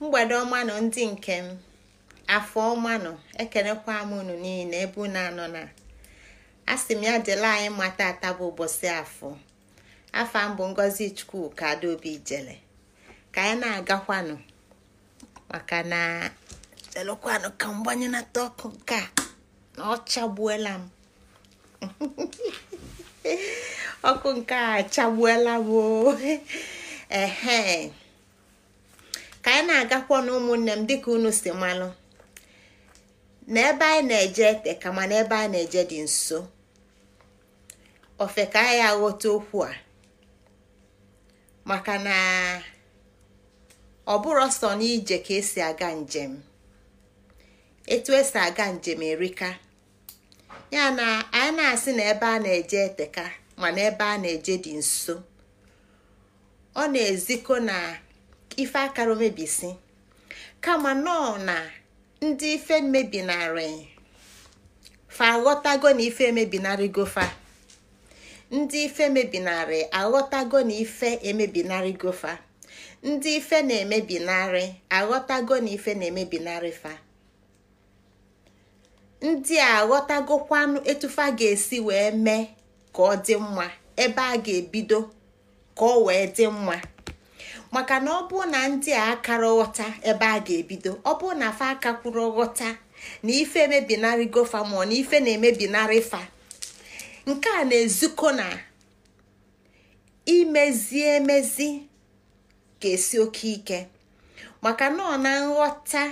mgbede ọma nọ ndị nke m afọ ọma nọ ekenekwa m unu niile ebe na anọ na asị m ya jele anyị mata ata bụ ụbọchị afọ afa mbụ ngozi ka adaobi jele ka anyị na-agakwanụ maka na jelekwanụ ka mgbanye ọkụ nke na ọ m ọkụ nke a chagbuela m oh. ka anyị na-agakwa na ụmụnne m dịka unu si malụ na ebe anyị na-eje ete ka mana ebe anyị na-eje dị nso ofe ka anyị aghọta okwu a maka na ọ bụrụ sọ n'ije ka esi aga njem etu esi aga njem erika ya na anyị na-asị na ebe a na-eje eteka mana ebe a na-eje dị nso ọ na-ezikọ na ife akara omebisi kama nọọ na ndị ife mebinarị fa aghọtago na ife emebinarịgo fa ndị ife mebinarị aghọtago na ife emebinarịgo fa ndị ife na-emebinarị aghọtago na ife na-emebinarị fa ndị a aghọtagokwanụ etufa ga-esi wee mee ka ọ dị mma ebe a ga-ebido ka ọ wee dị mma maka na ọ bụ na ndị a akara ghọta ebe a ga-ebido ọ bụ na fa aka kwuru ghọta na ife emebinarị gofa mụọ na ife na-emebinarị fa nke a na-ezukọ na imezi emezi ga-esi oke ike maka na ọ na nghọta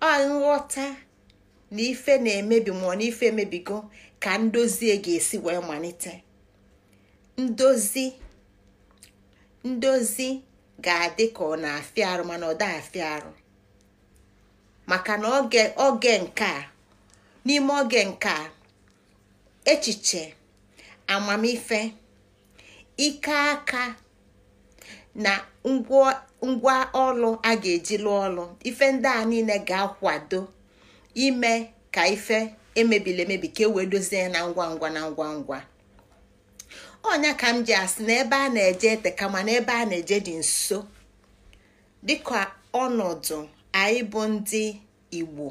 ọ nghọta na ife na-emebi mụọ na ife emebigo ka ndozie ga-esi wee malite ndozi ndozi ga-adị ka ọ na-afịa arụ mana ọ daa afịa arụ maka na oge nke a n'ime oge nke a echiche amamife ike aka na ngwa ọlụ a ga-eji lụọ ọlụ ife ndị a niile ga-akwado ime ka ife emebili emebi ka e wee dozie na ngwa ngwa na ngwa ngwa onya ka m ji asị na ebe a na-eje ete kama na ebe a na-eje dị nso dịka ọnọdụ anyị bụ ndị igbo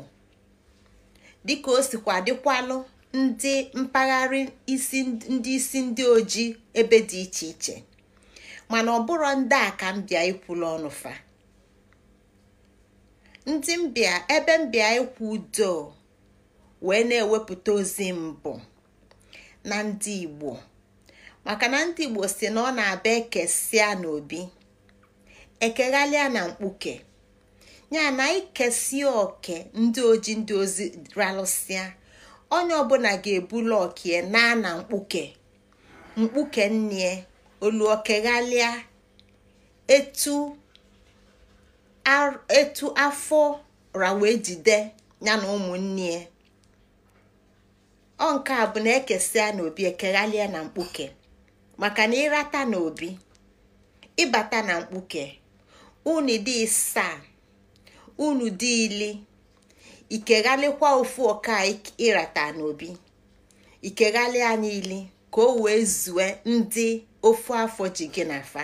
dịka o sikwa dịkwalụ ndị mpaghara isi ndị isi ndị ojii ebe dị iche iche mana ọ bụrụ ndị a ka m bịa ikwulu ọnụfa ndị mbịa ebe mbịa ikwu udo wee na-ewepụta ozi mbụ na ndị igbo maka na ndị Igbo si na ọ na-abịa ekesịa n'obi ekeghalịa na mkpuke ya na ikesia oke ndị oji ndị ozi ralụsịa onye ọbụla ga-ebulu okie naa na mkpuke mkpuke nne olu etu etu afọ rawe jide ya na ụmụnne ọ nke a bụ na ekesia n'obi ekeghalịa na mkpuke maka na ịrata na obi ịbata na mkpuke unu dị isaa unu dị ili ikeghalịkwa ofu ọka ịrata na obi ikeghalị anya ili ka o wee zue ndị ofu afọ ji gị na afa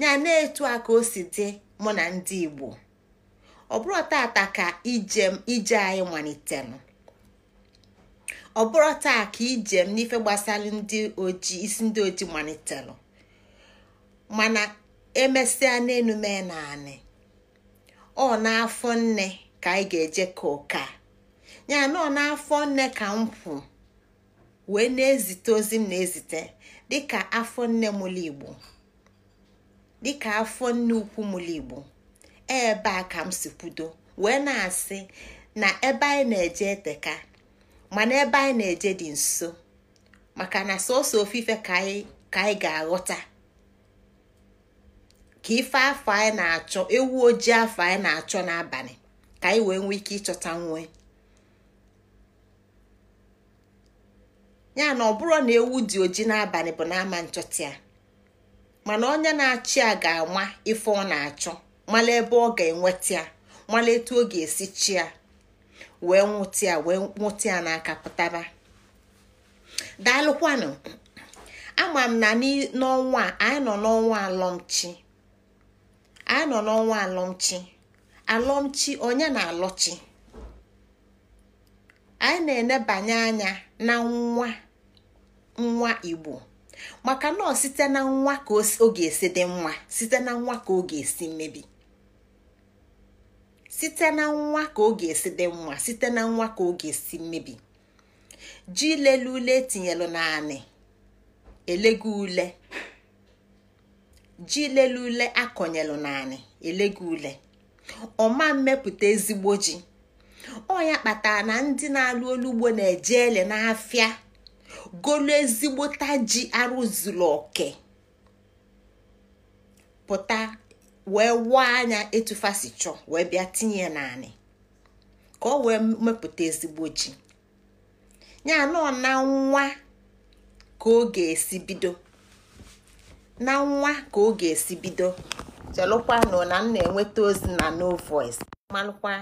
ya na-etu a ka o si dị mụ na ndị Igbo ọ bụrụ tata ka ije ije anyị malitere ọ bụrụ taa ka ijem n'ife gbasara ndị oji isi ndị oji malitelụ mana emesịa n'enume naanị ọ n'afọ nne ka anyị ga-eje ka ụka ya na ọ n'afọ nne ka m kwụ wee na-ezite ozi m na-ezite dịka afọ nne mụlụ igbo dịka afọ nne ukwu mụlụ igbo ebe a ka m si kwudo wee na-asị na ebe anyị na-eje eteka mana ebe anyị na-eje dị nso maka na sọsọ ofufe ka anyị ga-aghọta ka ife afọ anyị na-achọ ewu ojii afọ anyị na-achọ n'abalị ka anyị wee nwee ike ịchọta nwe ya na ọ bụrụ na ewu dị oji n'abalị bụ n'ama nchọta ya mana onye na-achị ya ga-ama ife ọ na-achọ mala ebe ọ ga-enweta ya mala etu ọ ga-esi chi ya wee nwụtịa wee nwụtịa n'aka pụtaba daalụkwanụ ama m na n'ọnwa anyị nọ n'ọnwa alọmchi anyị nọ n'ọnwa alọmchi onye na-alọchi anyị na-enebanye anya na nwa nwa igbo maka nọ site na nwa ka ọ ga-esi dị mma site na nwa ka ọ ga-esi mmebi site na nwa ka oge esi dị nwa site na nwa ka oge esi mmebi ji lelu ule etinyelu naanị elego ule ji lele ule akọnyelu naanị elego ule ọma mmepụta ezigbo ji ọ ya kpatara na ndị na-alụ olugbo na-eje ele n'afịa golu ezigbota ji arụzuru oke pụta wee wụọ anya etufasi chọọ wee bịa tinye naanị ka ọ wee mepụta ezigbo ji ya anọ na nwa ka ọ ga-esi bido na nwa ka ọ ga-esi bido chelụkwanụ na m na-enweta ozi na no voice malụkwa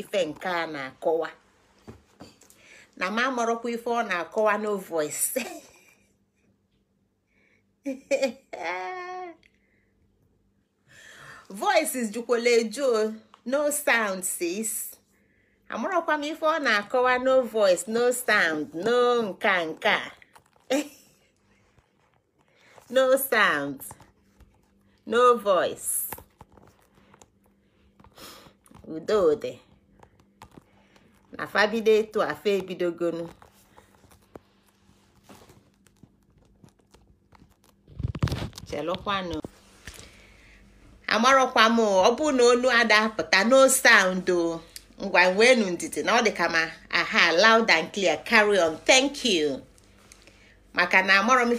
ife nke a na-akọwa na m amarọkwa ife ọ na-akọwa no voice voices jukwala o no sound sis amarakwa m ife ọ na-akọwa no voice no sound no nka nka no sound no voice ude na fabido etu afa ebidogonu chelụkwanụ amarọkwa m ọ bụ na onu adapụta no sound ngwa wenu ndidi na ọ dị ka ma aha loud and clear carry on thank you maka na amarọ m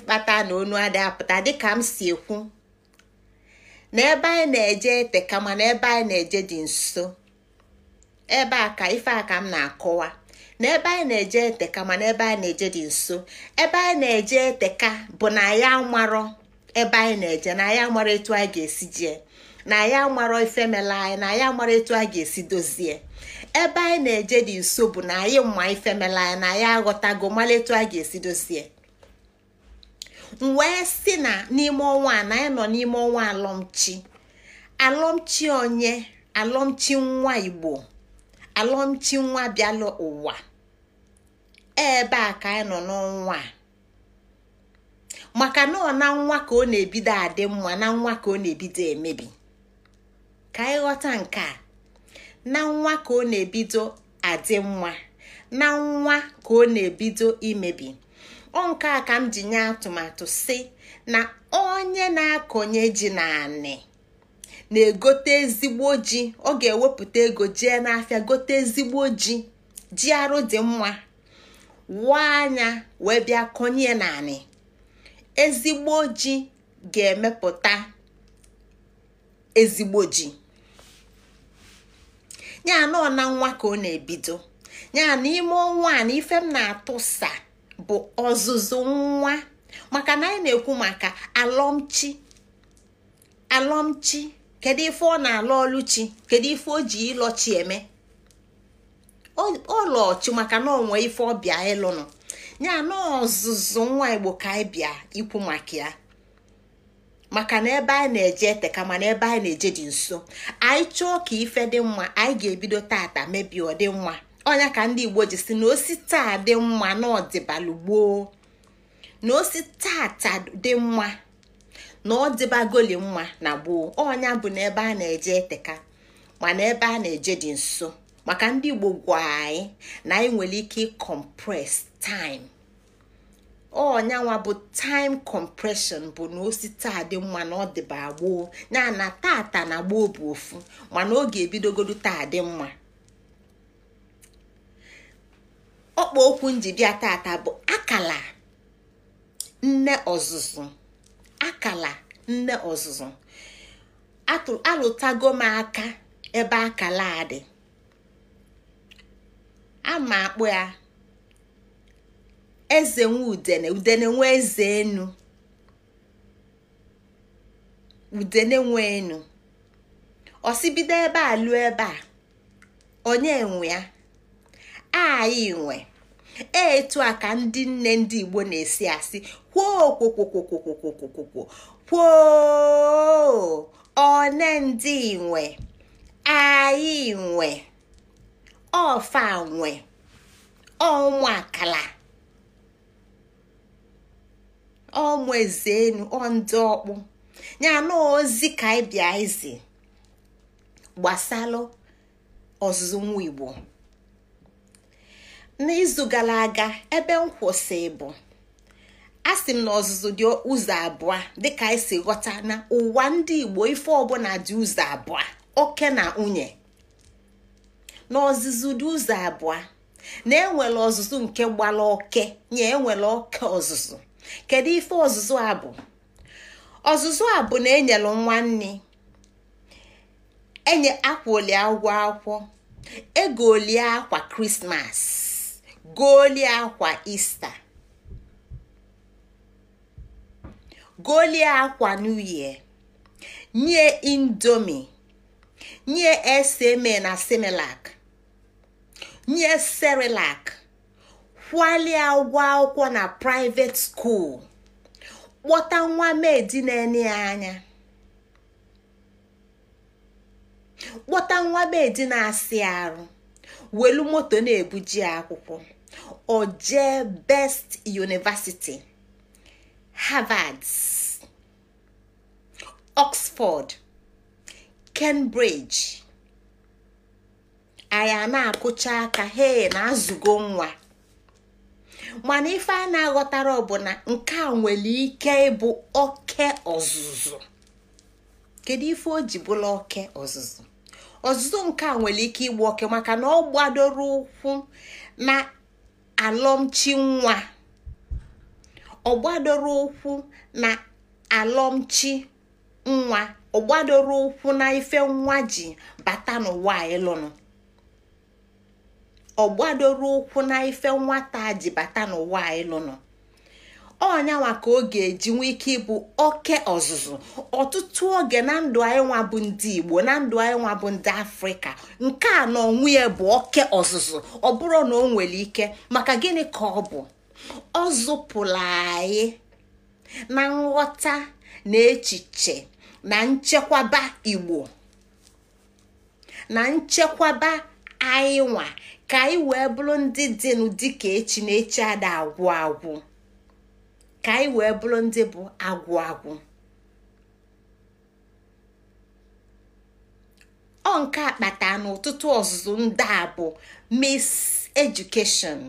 na onu adapụta dịka m si ekwu na ebe anyị na-eje eteka kama ebe anyị na-eje dị nso ebe a ka ife a m na-akọwa na ebe anyị na-eje eteka mana ebe anyị na-eje dị nso ebe anyị na-eje eteka bụ na ya ebe anyị na-eje na ya amarọ etu anyị ga-esi jee na ya mara ife anyị na ya mara etu a ga-esi dozie ebe anyị na-eje dị nso bụ na anyị mma ife mela anyị na ya aghọtago mara etu a ga-esi dozie m wee si na n'ime ọnwa na anyị nọ n'ime ọnwa alọmchi alọmchi onye alọmchi nwa igbo alọmchi nwa bịala ụwa ebe a ka anyị nọ n'ọnwa maka na ọ na nwa ka ọ na-ebido adị mma na nwa ka ọ na-ebido emebi ka ịghọta nke a na nwa ka ọ na-ebido adị mma na nwa ka ọ na-ebido imebi ọ nke a ka m ji nye atụmatụ si na onye na-akọnye ji na anị na-egote ezigbo ji ọ ga-ewepụta ego jee n'afịa gote ezigbo ji ji arụ dị mma anya wee bịa konye na anị ezigbo ji ga-emepụta ezigbo ji nya anọ na nwa ka ọ na-ebido ya n'ime ọnwa a na ife m na-atụsa bụ ọzụzụ nwa maka na anyị na-ekwu maka alọmchi alọmchi kedu ife ọ na-alụ ọlụchi kedu ife o ji ịlọchi eme ọlọchi maka na onwe ife ọbịa ịlụnụ ya ọzụzụ nwa igbo ka anyị bịa ikwu maka ya maka na ebe anyị na-eje eteka mana ebe anyị na-eje dị nso anyị chọọ ka ife dị mma anyị ga-ebido tata mebi ọ dị mma ọnya ka ndị igbo ji si na osi taa dị mma na ọdịbalụ gboo na osi tata dị mma na ọdịbagoli mma na gboo ọnya bụ na ebe a na-eje eteka mana ebe a na-eje dị nso maka ndị igbo gwa anyị na anyị nwere ike ịkọmpres taịm ọnyanwa bụ time compression bụ na osi taa dị mma na ọ dịba gboo ya na tata na gboo bụ ofu mana oge ebidogodo taa dị mma ọkpa okwu njibịa tata bụ akala nne ọzụzụ akala nne ọzụzụ alụtago m aka ebe akala a dị ama akpụ ya eze nwe udene udene nwe eze enu udene nwe enu osibido ebe a lụọ ebe a onye nwe ya anyị nwe etu a ka ndị nne ndị igbo na-esi asị kwokwokwokwokwokwokwokwo kwoo one ndị nwe anyị nwe ọfa nwe ọnwa akala ọmụezenu ọndụ ọkpụ ya na ozi ka anyị bịa izi gbasalụ ọzụzụ nwa igbo n'izu gara aga ebe m kwụsị bụ a sị m na ọzụzụ dị ụzọ abụọ dịka anyị e si ghọta na ụwa ndị igbo ife ọbụla dị ụzọ abụọ oke na nwunye na ọzụzụ dị ụzọ abụọ na enwere ọzụzụ nke gbara oke nye enwere oke ọzụzụ kedu ife ọzụzụ a bụ ọzụzụ a bụ na e nwa nwanne enye akwa oli akwọ akwụkwọ e egolie akwa krismas golie akwa ista golie akwa new nye indomi nye SMA na Semelak, nye Serelak. kwalie ụgwọ akwụkwọ na private school kpọta nwa medi na-enye ya anya kpọta nwa medi na-asị arụ welu moto na-ebuji akwụkwọ oje best university harvard oxford cambridge anyị na-akụcha aka he na azụgo nwa mana ife a na-aghọtara ọ bụ na nke a nwere ike ịbụ oke ọzụzụ kedu ife o ji bụla oke ọzụzụ ọzụzụ nke a nwere ike ịgba oke maka na ọ gbadoro ụkwụ na alọmchi nwa ọ gbadoro ụkwụ na alọmchi nwa ọ gbadoro ụkwụ na ife nwa ji bata n'ụwa ịlụnụ ọgbadoro ụkwụ na ife nwata ji bata n'ụwa lụnụ ọnyanwa ka ọ ga-eji nwee ike ịbụ oke ọzụzụ ọtụtụ oge na ndụ anyị nwa bụ ndị igbo na ndụ anyị nwa bụ ndị afrịka nke a na onwe ya bụ oke ọzụzụ ọ bụrụ na o nwere ike maka gịnị ka ọ bụ ọ zụpụla anyị na nghọta na echiche na nchekwaba igbo na nchekwaba anyị nwa ka anyị wee bụrụ ndị dịnụ dịka echi na echi ada agwụ agwụ ka anyị wee bụrụ ndị bụ agwụ agwụ ọ nke akpata n'ụtụtụ ọzụzụ ndị a bụ mis edukeshọn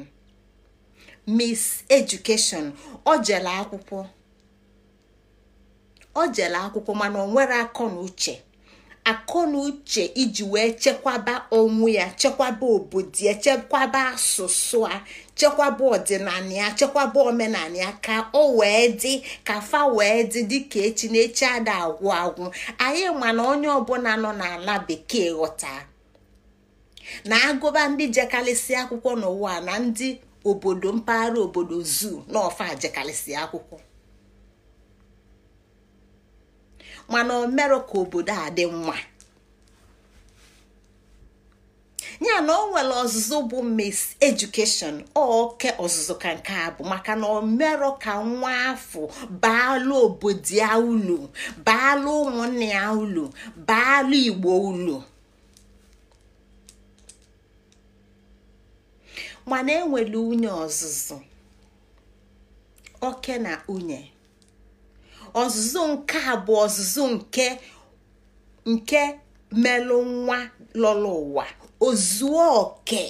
mis edukeshọn ọ jere akwụkwọ mana ọ nwere akọ na uche akọ na uche iji wee chekwaba onwe ya chekwaba obodo ya chekwaba asụsụ a chekwaba ọdịnala chekwaba omenala ya ka o wee dị ka fa wee dị dịka echi na echi ada agwụ agwụ anyị ma na onye ọbụla nọ n'ala bekee ghọta na agụba ndị jekalịsị akwụkwọ n'ụwa na ndị obodo mpaghara obodo zoo na ọfa jekalịsị akwụkwọ mana o mere ka obodo a dị mma ya na o nwere ọzụzụ bụ mis edukeshọn oke ọzụzụ ka nke a bụ maka na omero ka nwa afọ baalụ obodo ya ulu baalụ ụmụnne ya ulu baalụ igbo ulu mana enwere unye ọzụzụ oke na unye ọzụzụ nke a bụ ọzụzụ nke nke melụ nwa lọrọ ụwa ozuo oke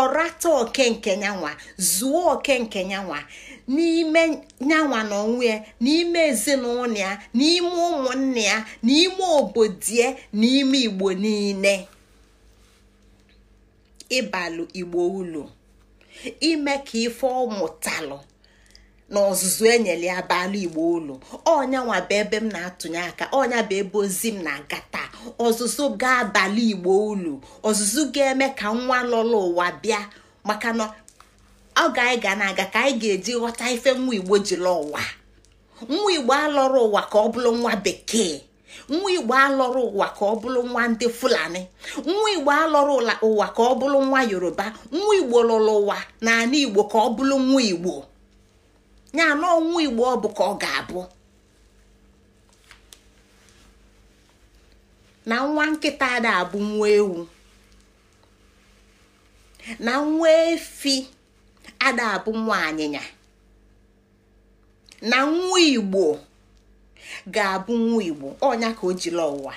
ọrata oke nke nyanwa zuo oke nke nyanwa n'ime nyanwa na onwe ya n'ime ezinụlọ ya n'ime ụmụnne ya n'ime obodo ya n'ime igbo niile ịbalụ igbo ulu ime ka ife ọ mụtalụ na ọzụzụ enyere ya bala igbo ụlọ ọnya bụ ebe m na-atụnye aka ọnya bụ ebe ozi m na-aga taa ọzụzụ ga-abalị igbo ụlọ ọzụzụ ga-eme ka nwa lọrọ ụwa bịa maka na ọ ga-anyị ga na-aga ka anyị ga-eji ghọta ife nwa igbo jiri ụwa nwa igbo alọrọ ụwa ka ọ bụrụ nwa bekee nwa igbo alọrọ ụwa ka ọ bụrụ nwa ndị fulani nwa igbo alọrọ ụwa ka ọ bụrụ nwa yoruba nwa igbo lọrọ ụwa na ala igbo ka ọ bụrụ nwa igbo ya na ọnwụ igbo ọ bụ ka ọ ga-abụ na nwa nkịta ada abụ nwa ewu na nwa efi ada abụ nwa anyịnya na nwa igbo ga-abụ nwa igbo ọnya ka o jiri ụwa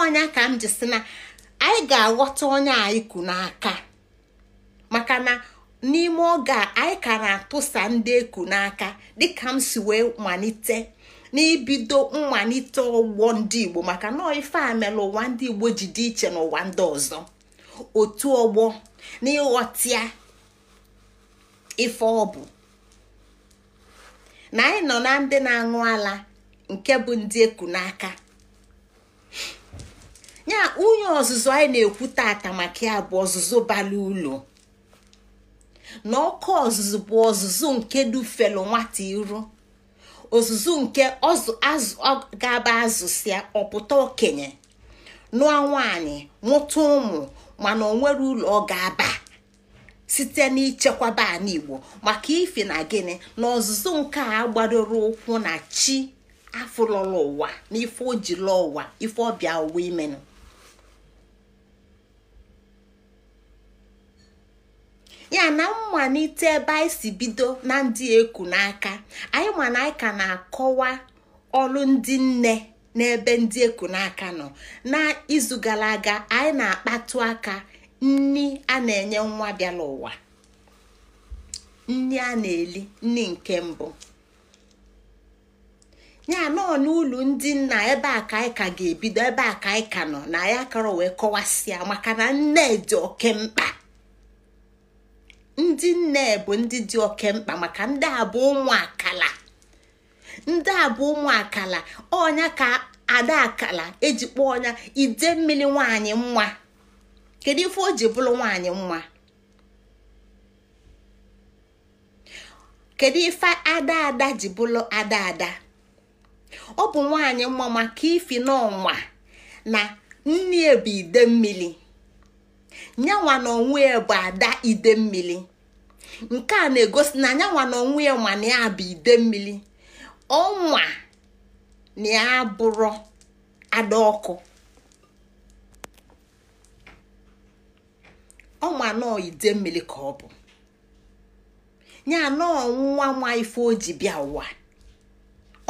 ọnya ka m ji si na anyị ga-aghọta onye anyị kụ n'aka maka na. n'ime oge a anyị ka na-atụsa ndị eku n'aka dịka m si wee malite n'ibido mmalite ọgbọ ndị igbo maka na ife a mere ụwa ndị igbo ji dị iche n'ụwa ndị ọzọ otu ọgbọ n'ịghọtịa ife ọ bụ na anyị nọ na ndị na-aṅụ ala nke bụ ndị eku n'aka ya onye ọzụzụ anyị na-ekwu tata maka ya bụ ọzụzụ bara ụlọ na ọkụ ọzụzụ bụ ọzụzụ nke dufelu nwata iru ozuzu nke azụ ga-aba azụsịa ọpụta okenye nụọ nwaanyị nwụta ụmụ mana nwere ụlọ ọ ga-aba site n'ichekwaba baa igbo maka ife na gịnị na ọzụzụ nke a gbadoro ụkwụ na chi afụlọla ụwa na ife o ụwa ife ọbịa ụwa imenụ ya na mmalite ebe anyị si bido na ndị eku n'aka anyị ma na anyị ka na-akọwa ọrụ ndị nne n'ebe ndị eku n'aka nọ na izu gara aga anyị na-akpatụ aka nni a na-enye nwa bịara ụwa nni a na-eli nni nke mbụ ya nọọ n'ụlọ ndị nna ebe a ka anyị ka ga-ebido ebe a ka anyị ka nọ na ya kọrọ wee kọwasịa maka na nne dị oke mkpa ndị nne bụ ndị dị oke mkpa maka ndị abụ bụ akala ndị abụ bụ akala ọnya ka ada akala eji kpọọ ọnya ide mmiri nwanyị nwa kedu ife o ji bụrụ nwanyị nwa kedu ife ada ada ji bụrụ ada ada ọ bụ nwanyị nwa maka ifi n'ọnwa na nne bụ ide mmiri nyanwa na onwe bụ ada ide mmiri nke a na-egosi na anyanwa na ọnwụ ya ma na bụ ide mmiri ọnwa na ya bụrụ ada ọkụ ọnwa nọọ ide mmiri ka ọ bụ ya nọọ nwa nwa ife o ji bịa ụwa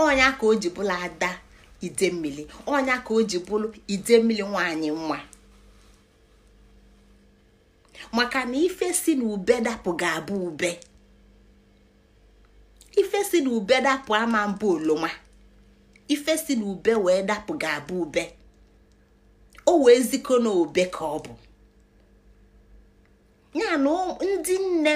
ọnya ka o ji bụla ada ide mmiri ọnya ka o ji bụrụ ide mmiri nwanyị nwa maka na ife si na ube dapụ ga-abụ ube ife si na ube dapụ ama mbụ oloma ife si na ube wee dapụ ga-abụ ube o wee ziko na obe ka ọ bụ ya na ndị nne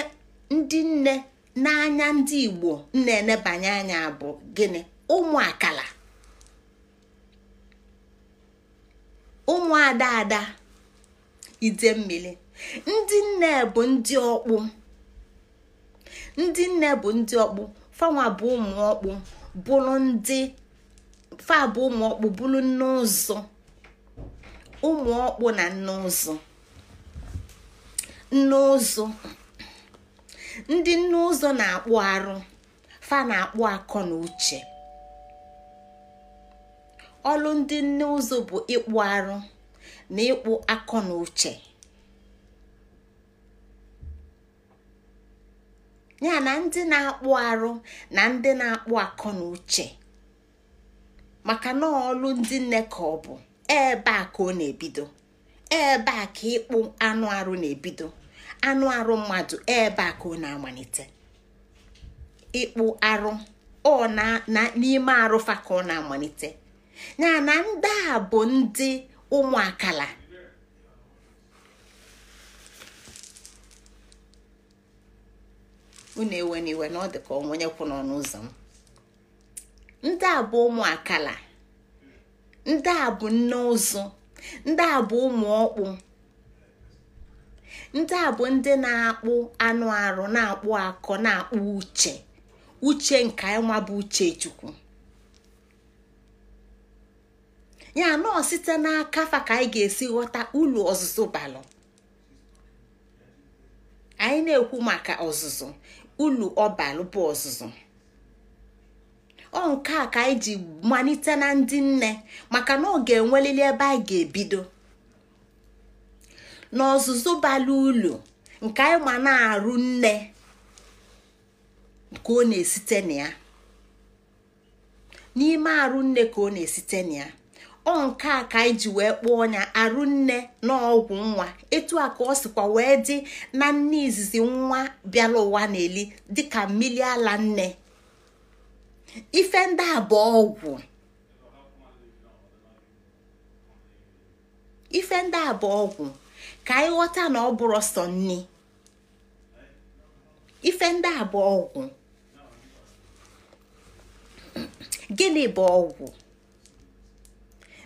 ndị nne n'anya ndị igbo na-enebanye anya bụ gịnị ụmụ akala ụmụ ada ada ide mmiri ndị nne bụ ndị ọkpụ ndị nne bụ ndị ọkpụ fanwa bụ ụmụ ọkpụ bụrụ ndị fa bụ ụmụ ọkpụ bụrụ nne ụzọ ụmụ ọkpụ na nne ụzọ nne ụzọ ndị nne ụzọ na-akpụ arụ fa na-akpụ akọ na uche ọlụ ndị nne ụzọ bụ ịkpụ arụ na ịkpụ akọ na uche ya na ndị na-akpụ arụ na ndị na-akpụ akọ na uche maka na ọlụ ndị nne ka ọ bụ ebe a ka ọ na-ebido ebe a ka ịkpụ anụ arụ na-ebido anụ arụ mmadụ ebe a ka ọ na-amalite ịkpụ arụ ọ na n'ime arụfa ka ọ na-amalite ya na ndị a bụ ndị ụmụ akala unu ewe n'iwe na ọ dị ka onwenye kwụ n'ọnụ ụzọ m ndị a bụ ụmụ akala ndị a bụ nne ụzụ ndị a bụ ụmụ ọkpụ ndị a bụ ndị na-akpụ anụ arụ na-akpụ akọ na-akpụ uche uche nke nwa bụ uche chukwu ya nọọ site n'aka fa ka anyị ga-esi ghọta ulu ọzụzụ balụ anyị na-ekwu maka ọzụzụ ulu ọbalụ bụ ọzụzụ ọ nke a ka anyị ji malite na ndị nne maka na ọ ga-enwelili ebe anyị ga-ebido n'ọzụzụ bala ulu nke anyị ma na-arụ nne ka ọ na-esite na n'ime arụ nne ka ọ na-esite na ya ọ nke a ka anyị ji wee kpọọ onya arụ nne n'ọgwụ nwa etu a ka ọ sịkwa wee dị na nne izizi nwa bịara ụwa na-eli dịka mmiri ala nne ife ndị a bụ ọgwụ ife ndị a ọgwụ ka anyị ghọta na ọ bụrụ sọ nne ife ndị a bụ ọgwụ gịnị bụ ọgwụ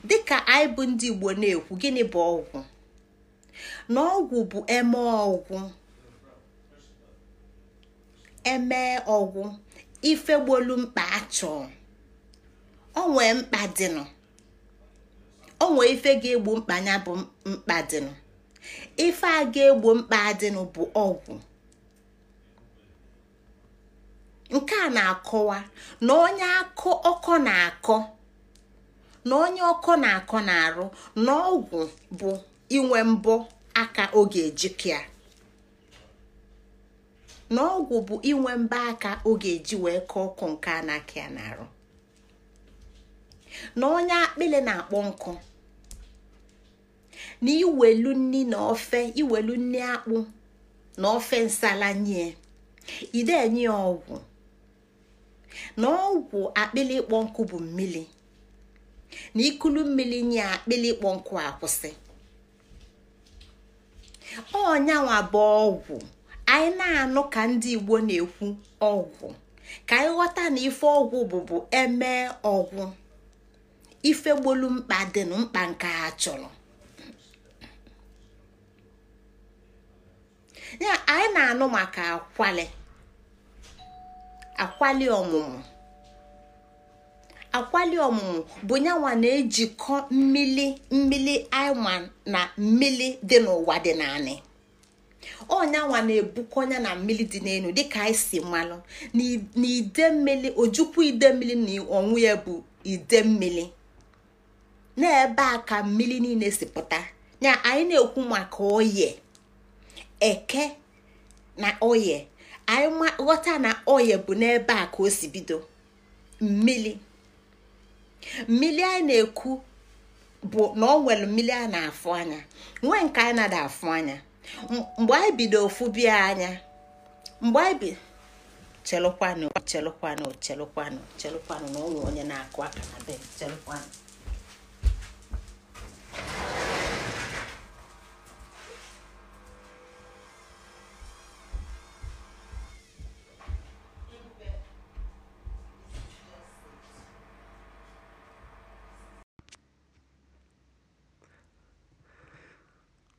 dịka anyị bụ ndị igbo na-ekwu gịnị bụ ọgwụ na ọgwụ bụ eme ọgwụ eme ọgwụ ife gbolu mkpa achọ onwe mkpa dịnụ onwe ife ga mkpanya mkpa bụ mkpa dịnụ ife a ga-egbo mkpa dịnụ bụ ọgwụ nke a na-akọwa na onye akọ ọkọ na-akọ na onye ọkọ na-akọ na-arụ na ọgwụ bụ inwe mbọ aka oge ejikịa na ọgwụ bụ inwe mbọ aka ọ ga-eji wee kọọ ọkụ nke a na-akị ya na-arụ. na onye akpịlị na-akpọ nkụ na iwelu nni na ofe iwelu nni akpụ na ofe nsala nye ide enye ọgwụ na ọgwụ akpịlị ịkpọ nkụ bụ mmiri na ikulu mmiri nye akpịlị ịkpọ nkụ akwụsị ọnyanwa bụ ọgwụ anyị na-anụ ka ndị igbo na-ekwu ọgwụ ka anyị ghọta na ife ọgwụ bụbu eme ọgwụ ifegbolu mkpa dị na mkpa nke a chọrọ anyị na-anụ maka akwali akwali ọmụmụ akwali ọmụmụ bụ nyanwa na-ejikọ mmili mmili aịma na mmili dị n'ụwa dị naanị ọnyanwa na-ebukọnya na mmili dị n'elu dịka anyị si mmanụ na ide mmili ojukwu ide mmili na ọnwụ ya bụ ide mmili ebe a ka mmili niile si pụta ya anyị na-ekwu maka oye eke na oye anyị ghọta na oye bụ n'ebe a ka o si bido mmili mmiri na-ekwu bụ na ọ nwere mmiri na-afụ anya nwee nke anyị na afụ anya mgbe anyị bido ofu bịa anya mgbe anyị bi chelụkwanụ chelụkwanụ chelụkwanụ chelụkwanụ na ọ nwere onye na-akụ aka na be chelụkwanụ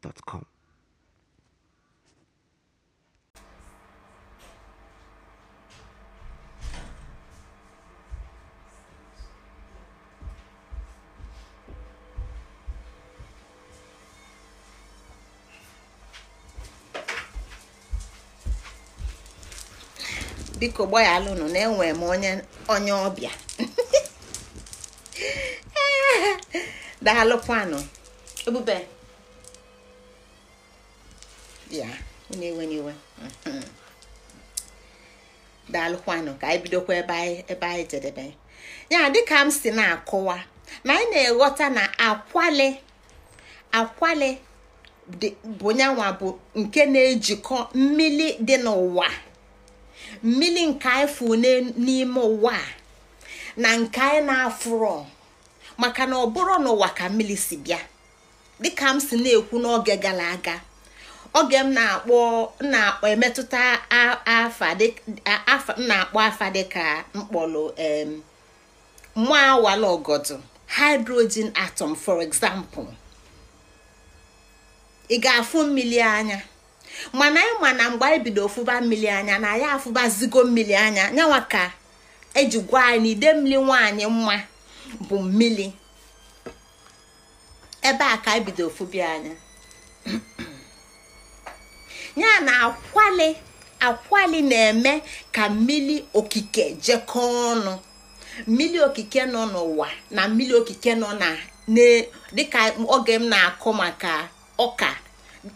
biko biko alụnụ na enwe m onye onye ọbịa daalụkwanụ ebube ya unu enwena iwe daalụkwanụ ka anyị bidokwa ebe anyị jedebe ya dịka m si na-akọwa na anyị na-eghọta na akwali akwali bụ nyanwa bụ nke na-ejikọ mmiri dị n'ụwa mmiri nke anyị fụ n'ime ụwa na nke anyị na-afụrọ maka na ọ bụrụ n'ụwa ka mmiri si bịa dịka m si na-ekwu n'oge gara aga oge m na-akpọ na-akpọ emetụta na-akpọ afa dịka mkpọrọ mụ awala ọgọdụ hydrogen atom for example ị ga-afụ mmiri anya mana anyị ma na mgbe anyị bido ofụba mmiri anya na ya afụbazigo mmiri anya nyawaka ka eji gwa anyị ide mmiri nwaanyị mma bụ mmiri ebe a ka anyị bido anya ya na akwali akwali na-eme ka mmiri okike jekọọ ọnụ mmiri okike nọ n'ụwa na mmiri okike nọ na dịka oge m na-akụ maka ọka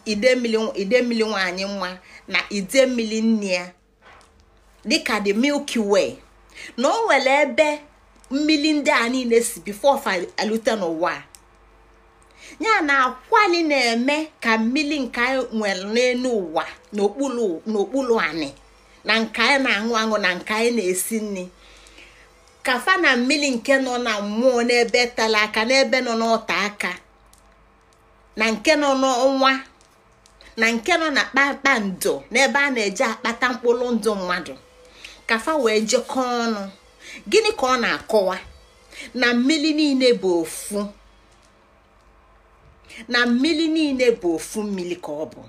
mmiri nwanyị nwa na mmiri nne ya dịka the milky way na o nwere ebe mmiri ndị a niile si bifo fa n'ụwa n'ụwa ya na akwali na-eme ka mmiri nke anyị nwere n'elu ụwa n'okpuru ani na nke anyị na-aṅụ aṅụ na nke anyị na-esi nri kafa na mmiri nke nọ na mmụọ n'ebe tara aka n'ebe nọ n'ọta aka na nke nọ n'ọnwa na nke nọ na kpakpando n'ebe a na eje akpata mkpụrụ ndụ mmadụ kafa wee jekọọ ọnụ gịnị ka ọ na-akọwa na mmiri niile bụ ofu na mmiri niile bụ ofu mmiri ka ọ bụ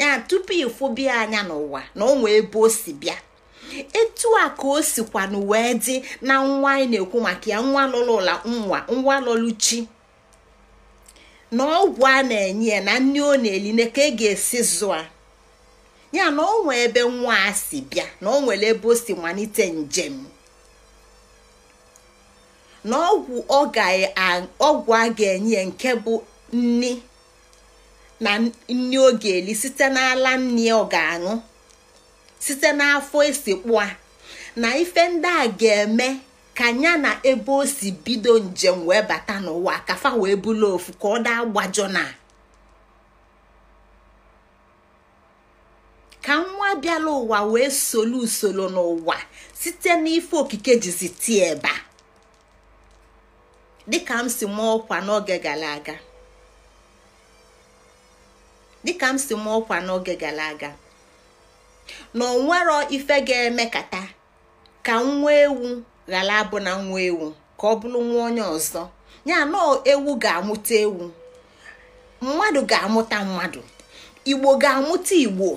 ya tupu ịfụbia anya n'ụwa na ọ ebe o si bịa etu a ka o sikwanụ wee dị na nwa anyị na-ekwu maka ya nwa lụlụla nwa nwa lụlụ chi na ọgwụ a na-enye ya na nne ọ na na ka e ga-esi zụa ya na ọ ebe nwa a si bịa na ọ ebe o si malite njem na ọgwụ a ga-enye nke bụ nni na nni ọ eli site n'ala nni ọ ga-aṅụ site n'afọ isikpua a na ife ndị a ga-eme ka ya na ebe o si bido njem wee bata n'ụwa kafa wee bulu ofu ka ọ daa gbajọ na ka nwa bịala ụwa wee solu usoro n'ụwa site n'ife okike jizi tie eba dịka m si mụọ ọkwa n'oge gara aga dịka m si ọkwa n'oge gara aga na onwero ife ga emekata ka nwa ewu ghara abụ na nwa ewu ka ọ bụrụ nwa onye ọzọ ya na ewu ga-amụta ewu mmadụ ga-amụta mmadụ igbo ga-amụta igbo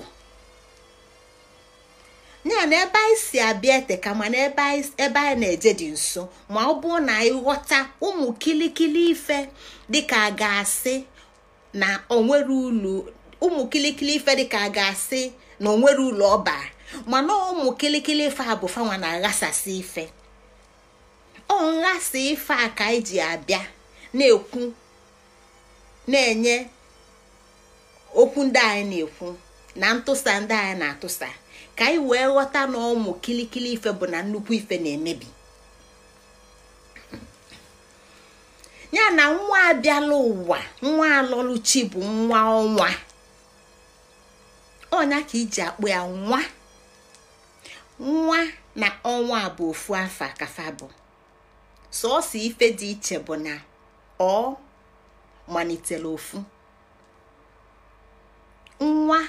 ya na ebe anyị si abịa ete ka mana ebe anyị na-eje dị nso ma ọ bụrụ na anyị ụmụ kilikili ife dịka a ga-asị na onwere ulu ụmụ kilikili ife dịka a ga-asị na onwere ụlọ ọba mana ụmụ kilikili ife a bụ fanwa na aghasasị ife ọ nghasa ife a ka anyị e ji abịa na-ekwu na-enye okwu ndị anyị na-ekwu na ntụsa ndị anyị na-atụsa ka anyị wee ghọta na ụmụ kilikili ife bụ na nnukwu ife na-emebi ya na nwa abịala ụwa nwa alọluchi bụ nwa ọnwa ọnya ka iji akpụ ya nwa nwa na ọnwa bụ ofu afa kafa bụ sọọsọ ife dị iche bụ na ọ malitere ofu nwa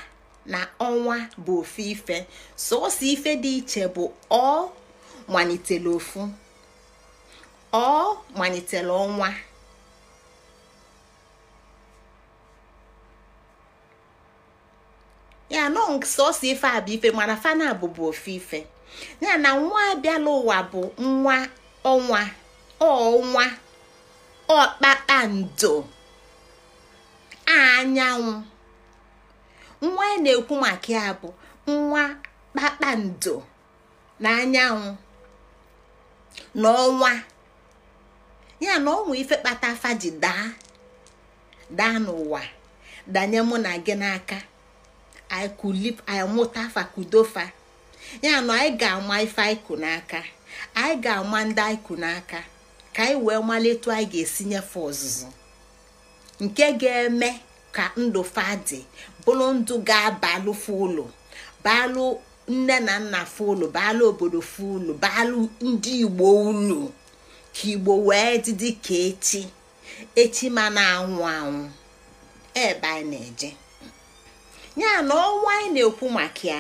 na ọnwa bụ ife sọọsọ ife dị iche bụ ọ malitere ofu ọ malitere ọnwa ọnk sọsọ ife a bụ ife mana fana bụbu ofe ife ya na nwa abịala ụwa bụ nwa ọnwa ọnwa ọkpakpando anyanwụ nwa a na-ekwu maka ya bụ nwa kpakpando na anyanwụ na ọnwa ya na ọnwa ife kpata ji daa daa n'ụwa danye mụ na gị n'aka anyị kulip anyị mụta ya na anyị ga-ama ife anyị n'aka anyị ga-ama ndị anyị n'aka ka anyị wee malite anyị ga-esi nyefe ọzụzụ nke ga-eme ka ndụ fadị bụrụ ndụ ga-abalụ fụlụ balụ nne na nna fụlụ balụ obodo fụlụ balụ ndị igbo ulu ka igbo wee dịdị ka echi echi ma na-anwụ anwụ ebe anyị e na-eje ya na ọnwa anyị na-ekwu maka ya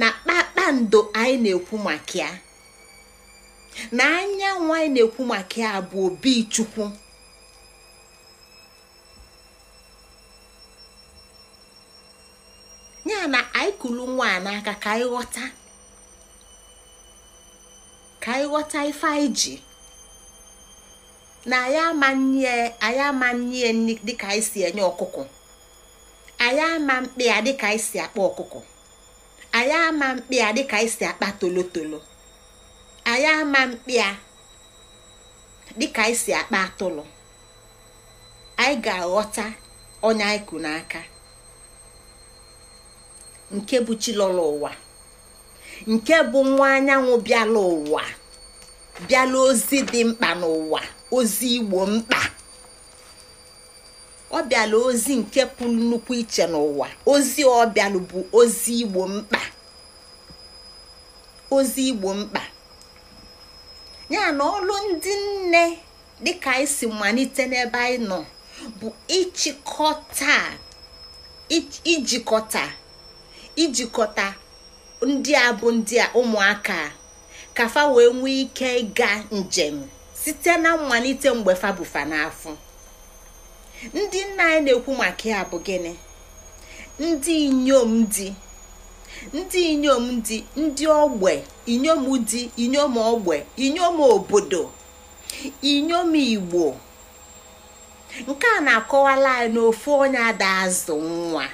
na kpakpando anyị na-ekwu maka ya na anyanwụ anyị na-ekwu maka ya bụ obi chukwu ya na anyị kulu nwa n'aka ka anyị ghọta ka anyị ghọta ife anyị ji na anyị ama nye dịka anyị si enye ọkụkọ anyị ama mkpi ya dịka anyị si akpa ọkụkọ anyị ama mkpi ya dịka anyị si akpa tolotolo anyị ama mkpi ya dịka anyị si akpa atụrụ anyị ga-aghọta onye anyị kụ n'aka nke bụ chilọla ụwa nke bụ nwa anyanwụ bịala ụwa bịala ozi dị mkpa n'ụwa ozi igbo mkpa ọ bịala ozi nke pụrụ nnukwu iche n'ụwa ozi ọ bịalụ bụ ozi igbo mkpa ozi igbo mkpa ya na ọlụ ndị nne dịka anyị si malite n'ebe anyị nọ bụ ịchịkọta ijikọta ijikọta ndị a bụ ndị ụmụaka ka fa wee nwee ike ịga njem site na mmalite mgbe fa n'afọ ndị nna anyị na-ekwu maka ya bụ gịnị ndị inyom di ndị inyom di ndị ogbe inyom di inyom ogbe inyom obodo inyom igbo nke a na-akọwala anyị na ofu onye ada azụ nwa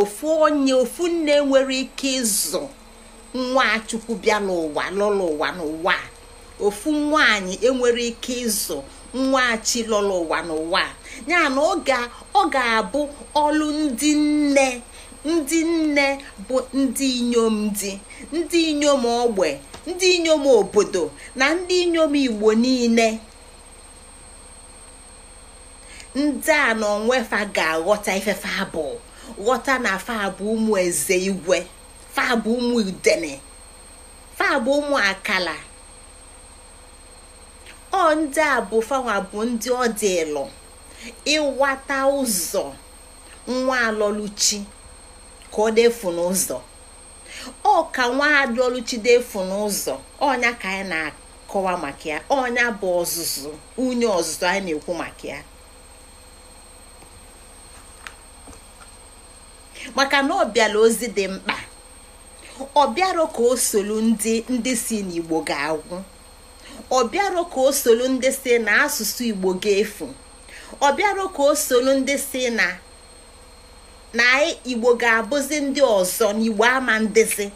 ofu onye ofu nne nwere ike ịzụ nwa chukwu bịa n'ụwa lụrụ ụwa n'ụwa ofu nwaanyị enwere ike ịzụ nwa chi lụrụ ụwa n'ụwa ya na ọ ga-abụ ọlụ ndị nne ndị nne bụ ndị inyom di ndị inyom ogbe ndị inyom obodo na ndị inyom igbo niile ndị a na onwefa ga-aghọta ife abụ ghọta na fabụ ụmụ eze igwe fabụ ụmụ udene fabụ ụmụ akala ọ ndị a bụ fawa bụ ndị ọ ịwata ụzọ nwa alọluchi ka ọ defu n'ụzọ ọ ka nwa alọluchi defu n'ụzọ ọnya ka anyị na-akọwa maka ya ọnya bụ ọzụzụ unye ọzụzụ anyị na-ekwu maka ya maka na ọ bịara ozi dị mkpa ọ bịara ka o solu ndị ndị si n'Igbo ga-agwụ ọ bịara ka o solu ndị si na asụsụ Igbo ga-efu ọ bịara ka o ndị si na na igbo ga-abụzi ndị ọzọ na ama ndịzi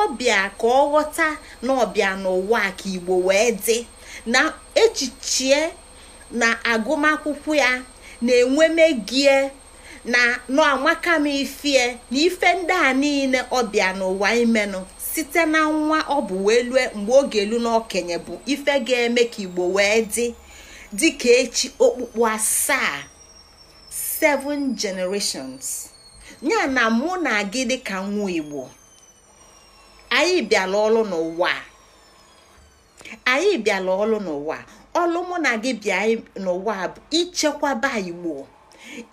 ọ bịa ka ọ ghọta na ọbịa n'ụwa ka igbo wee dị na echiche na agụmakwụkwọ ya na-enwe megie na n'amaka m ifie na ife ndị a niile ọbịa n'ụwa imenụ site na nwa ọ bụ wee lue mgbe oge elu na bụ ife ga-eme ka igbo wee dị dịka echi okpukpu asaa seven generations ya na mụ na gị dịka nwa igbo anyị bịara ọlụ n'ụwa anyị bịara ọlụ n'ụwa ọlụ mụ na gị bịa n'ụwa bụ ichekwaba igbo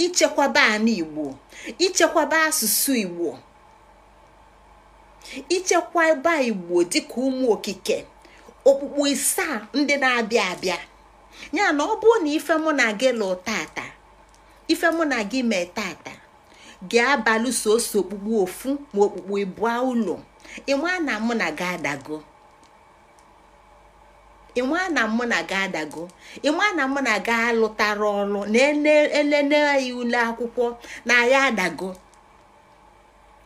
ichekwaba anụ igbo ichekwaba asụsụ igbo ichekwaba igbo dịka ụmụ okike okpukpu isaa ndị na-abịa abịa ya na ọ bụrụ na ife mụ na gị lụ tata ife mụ na gị mee tata gị abalị soso okpukpu ofu ma okpukpu ịbụa ụlọ ịma na mụ na gị adago ịma na mụ na gị adago ịma na mụ na gị alụtara ọrụ na elele ule akwụkwọ na ya adago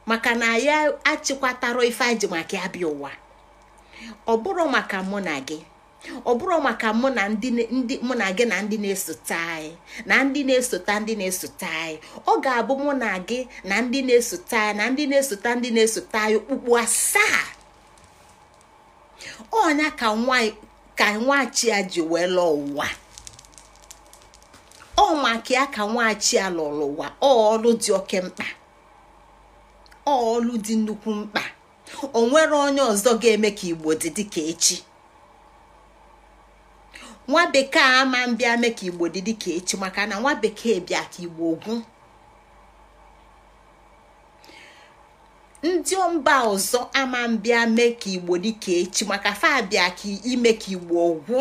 maka na ya achịkwatara ife aji maka ya bịa ụwa ọ bụrụ maka mụ na gị ọ bụrụ maka mụ na ndị mụ na gị na ndị na-esote anyị na ndị na-esote ndị na-esote anyị ọ ga-abụ mụ na gị na ndị na-esote anyị na ndị na-esote ndị na-esote anyị okpukpu asaa ọnya ka nwa ka nwachi a ji wee lụọ ụwa ọ maka ya ka nwachi a lụrụ ụwa ọlụ dị oke mkpa ọlụ dị nnukwu mkpa o nwere onye ọzọ ga-eme ka igbo dị dịka echi nwa bekee ama mbịa mee ka igbo dị dịka echi maka na nwa bekee bịa ka igbo ogwu ndị mba ọzọ ama mbịa mee ka igbo dị ka echi maka fa bịa ka ime ka igbo ogwu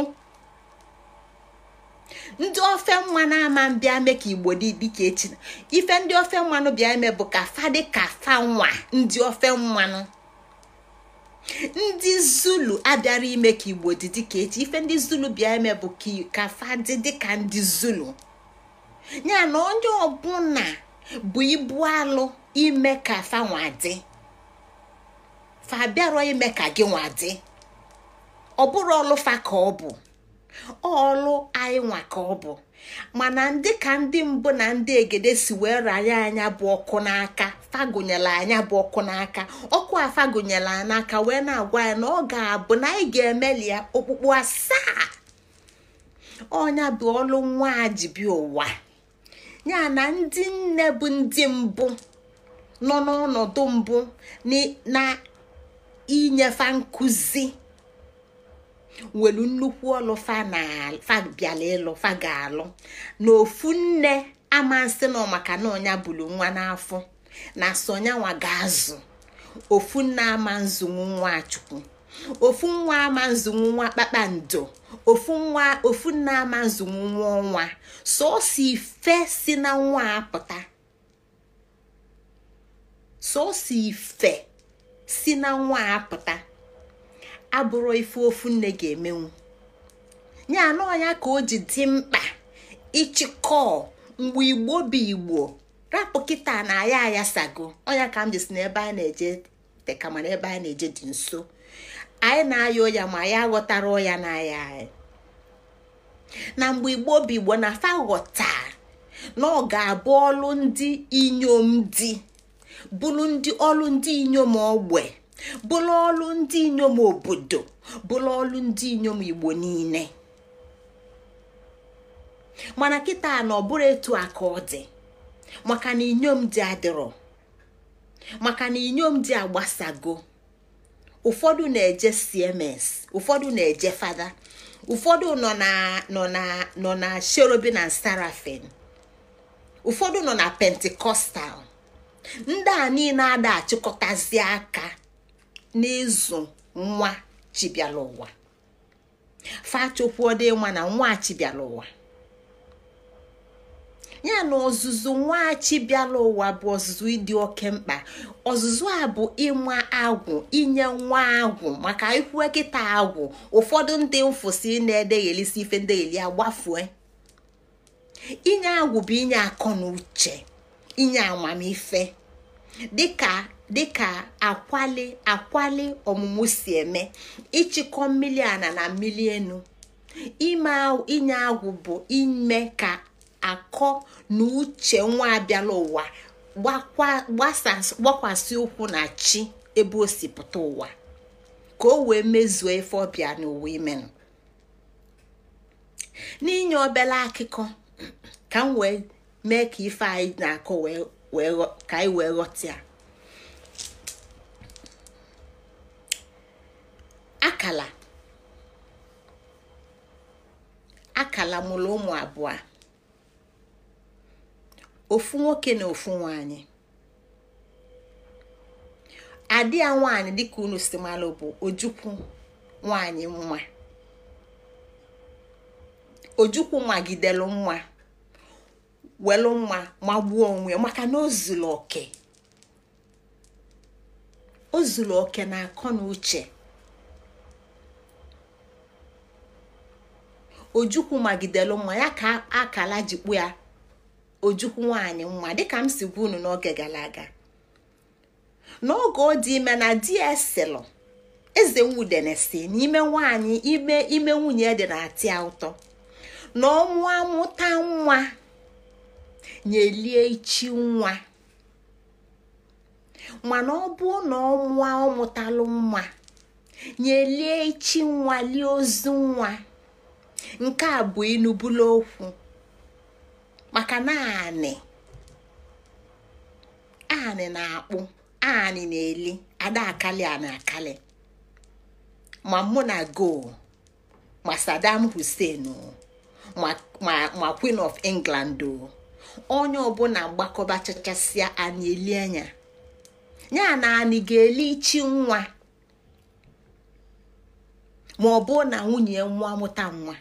ndị ofe mmanụ ama mbịa mee ka igbo dị dịka echi ife ndị ofe mmanụ bịa eme bụ ka fa dị ka fa nwa ndị ofe mmanụ ndị zulu abịara ime ka igbo dị dịka echi ife ndị zulu bịa eme bụ ka dị dịka ndị zulu ya na onye ọbụla bụ ibu alụ ime ka nwadị fa bịarọ ime ka gị nwadị ọ bụrụ ọlụfa ka ọ bụ ọlụ anyị nwa ka ọ bụ mana ndị ka ndị mbụ na ndị egede si wee raya anya bụ ọkụ n'aka fagụnyela anya bụ ọkụ n'aka ọkụ a fagụnyela n'aka wee na-agwa ya na ọ ga-abụ na anyị ga-emeli ya okpukpu asaa ọnya bụ ọlụ nwa ji bi ụwa ya na ndị nne bụ ndị mbụ nọ n'ọnọdụ mbụ na inyefa nkụzi nwere nnukwu ọlụ fabiala ịlụ faga alụ na ofu nne amasị nọ maka na ọnya bulu nwa n'afọ na sonyanwa ga-azụ ofu nne ama nzụnwu nwa chukwu ofu nwa ama nzụnwu nwa kpakpando ofu nwa ofu nne ama nzụnwu nwa ọnwa ife si na nwa apụta sọọsọ ife si na nwa apụta abụrụ ife ofu nne ga-emenwu ya anụ ya ka o ji dị mkpa ịchịkọ mgbe igbo bụ igbo rapụ kịta na aya ayasago onya ka m ji si n'ebe a na-eje ebe a na-eje dị nso anyị na-aya ụya ma ya aghọtara ụya na aya anyị na mgbe igbo bụ igbo na fa ghọta na ọ ga-abụ ọlụ ndị inyom di bụrụ ndị ọlụ ndị inyom ogbe bụrụ ọlụ ndị inyom obodo bụrụ ọlụ ndị inyom igbo niile mana kịta na ọ bụrụ etu aka ọ dị maka na inyom dị adịrọ maka na inyom dị agbasago ụfọdụ na-eje cms ụfọdụ na-eje fada ụfọdụ nọ na nọ na nọ na sherobi na sarafin ụfọdụ nọ na pentikọstal ndị a niile ada achịkọtazi aka n'ịzụ nwa chibịala ụwa fachokwuodo nwa na nwa chibịala ụwa ya na ọzụzụ nwa chibịala ụwa bụ ọzụzụ ịdị oke mkpa ọzụzụ a bụ ịma agwụ inye nwa agwụ maka ikwu kịta agwụ ụfọdụ ndị mfụsi na-edeghelisi ife ndegheli gbafue inye agwụ bụ inye akọ na uche inye amamife dịka dịka akwali akwali ọmụmụ si eme ịchịkọ mmiri ana na mmiri enu inye agwụ bụ ime ka akọ na uche nwa abịala ụwa gbakwasị ụkwụ na chi ebe osipụta ụwa ka o wee mezuo efe ọbịa n'ụwa imenụ n'inye obere akụkọ ka m wee mee ka ife anyị na-akọ ka anyị wee ghọta ya akala akala mụrụ ụmụ abụọ ofu nwoke na ofu nwanyị adị ya nwaanyị dịka unu si malụ bụ ojukwu nwaanyị nwa ojukwu magidelu nwa welu nwa magbuo onwe maka na o oke oke na akọ na uche ojukwu magidelu mma ya ka akala jikpu ya ojukwu nwanyị mma dịka m si gwa unu n'oge gara aga n'oge ọ dị ime na dieselụ eze nwudenesi n'ime nwanyị ime ime nwunye dị na-atị ya ụtọ na ọnwa mụta nwa nyelie ichi nwa mana ọ bụ na ọnwa ọ mụtalụ nwa nyelie ichi nwa lie ozu nwa nke a bụ inubula okwu maka naanị anị na-akpụ anị na-eli ada akali anị akali ma mụ na go ma sadam Hussein ma Queen of England o onye ọbụla mgbakọba chachasịa anyị eli anya ya na ga-eli ichi nwa ma ọ bụ na nwunye nwa mụta nwa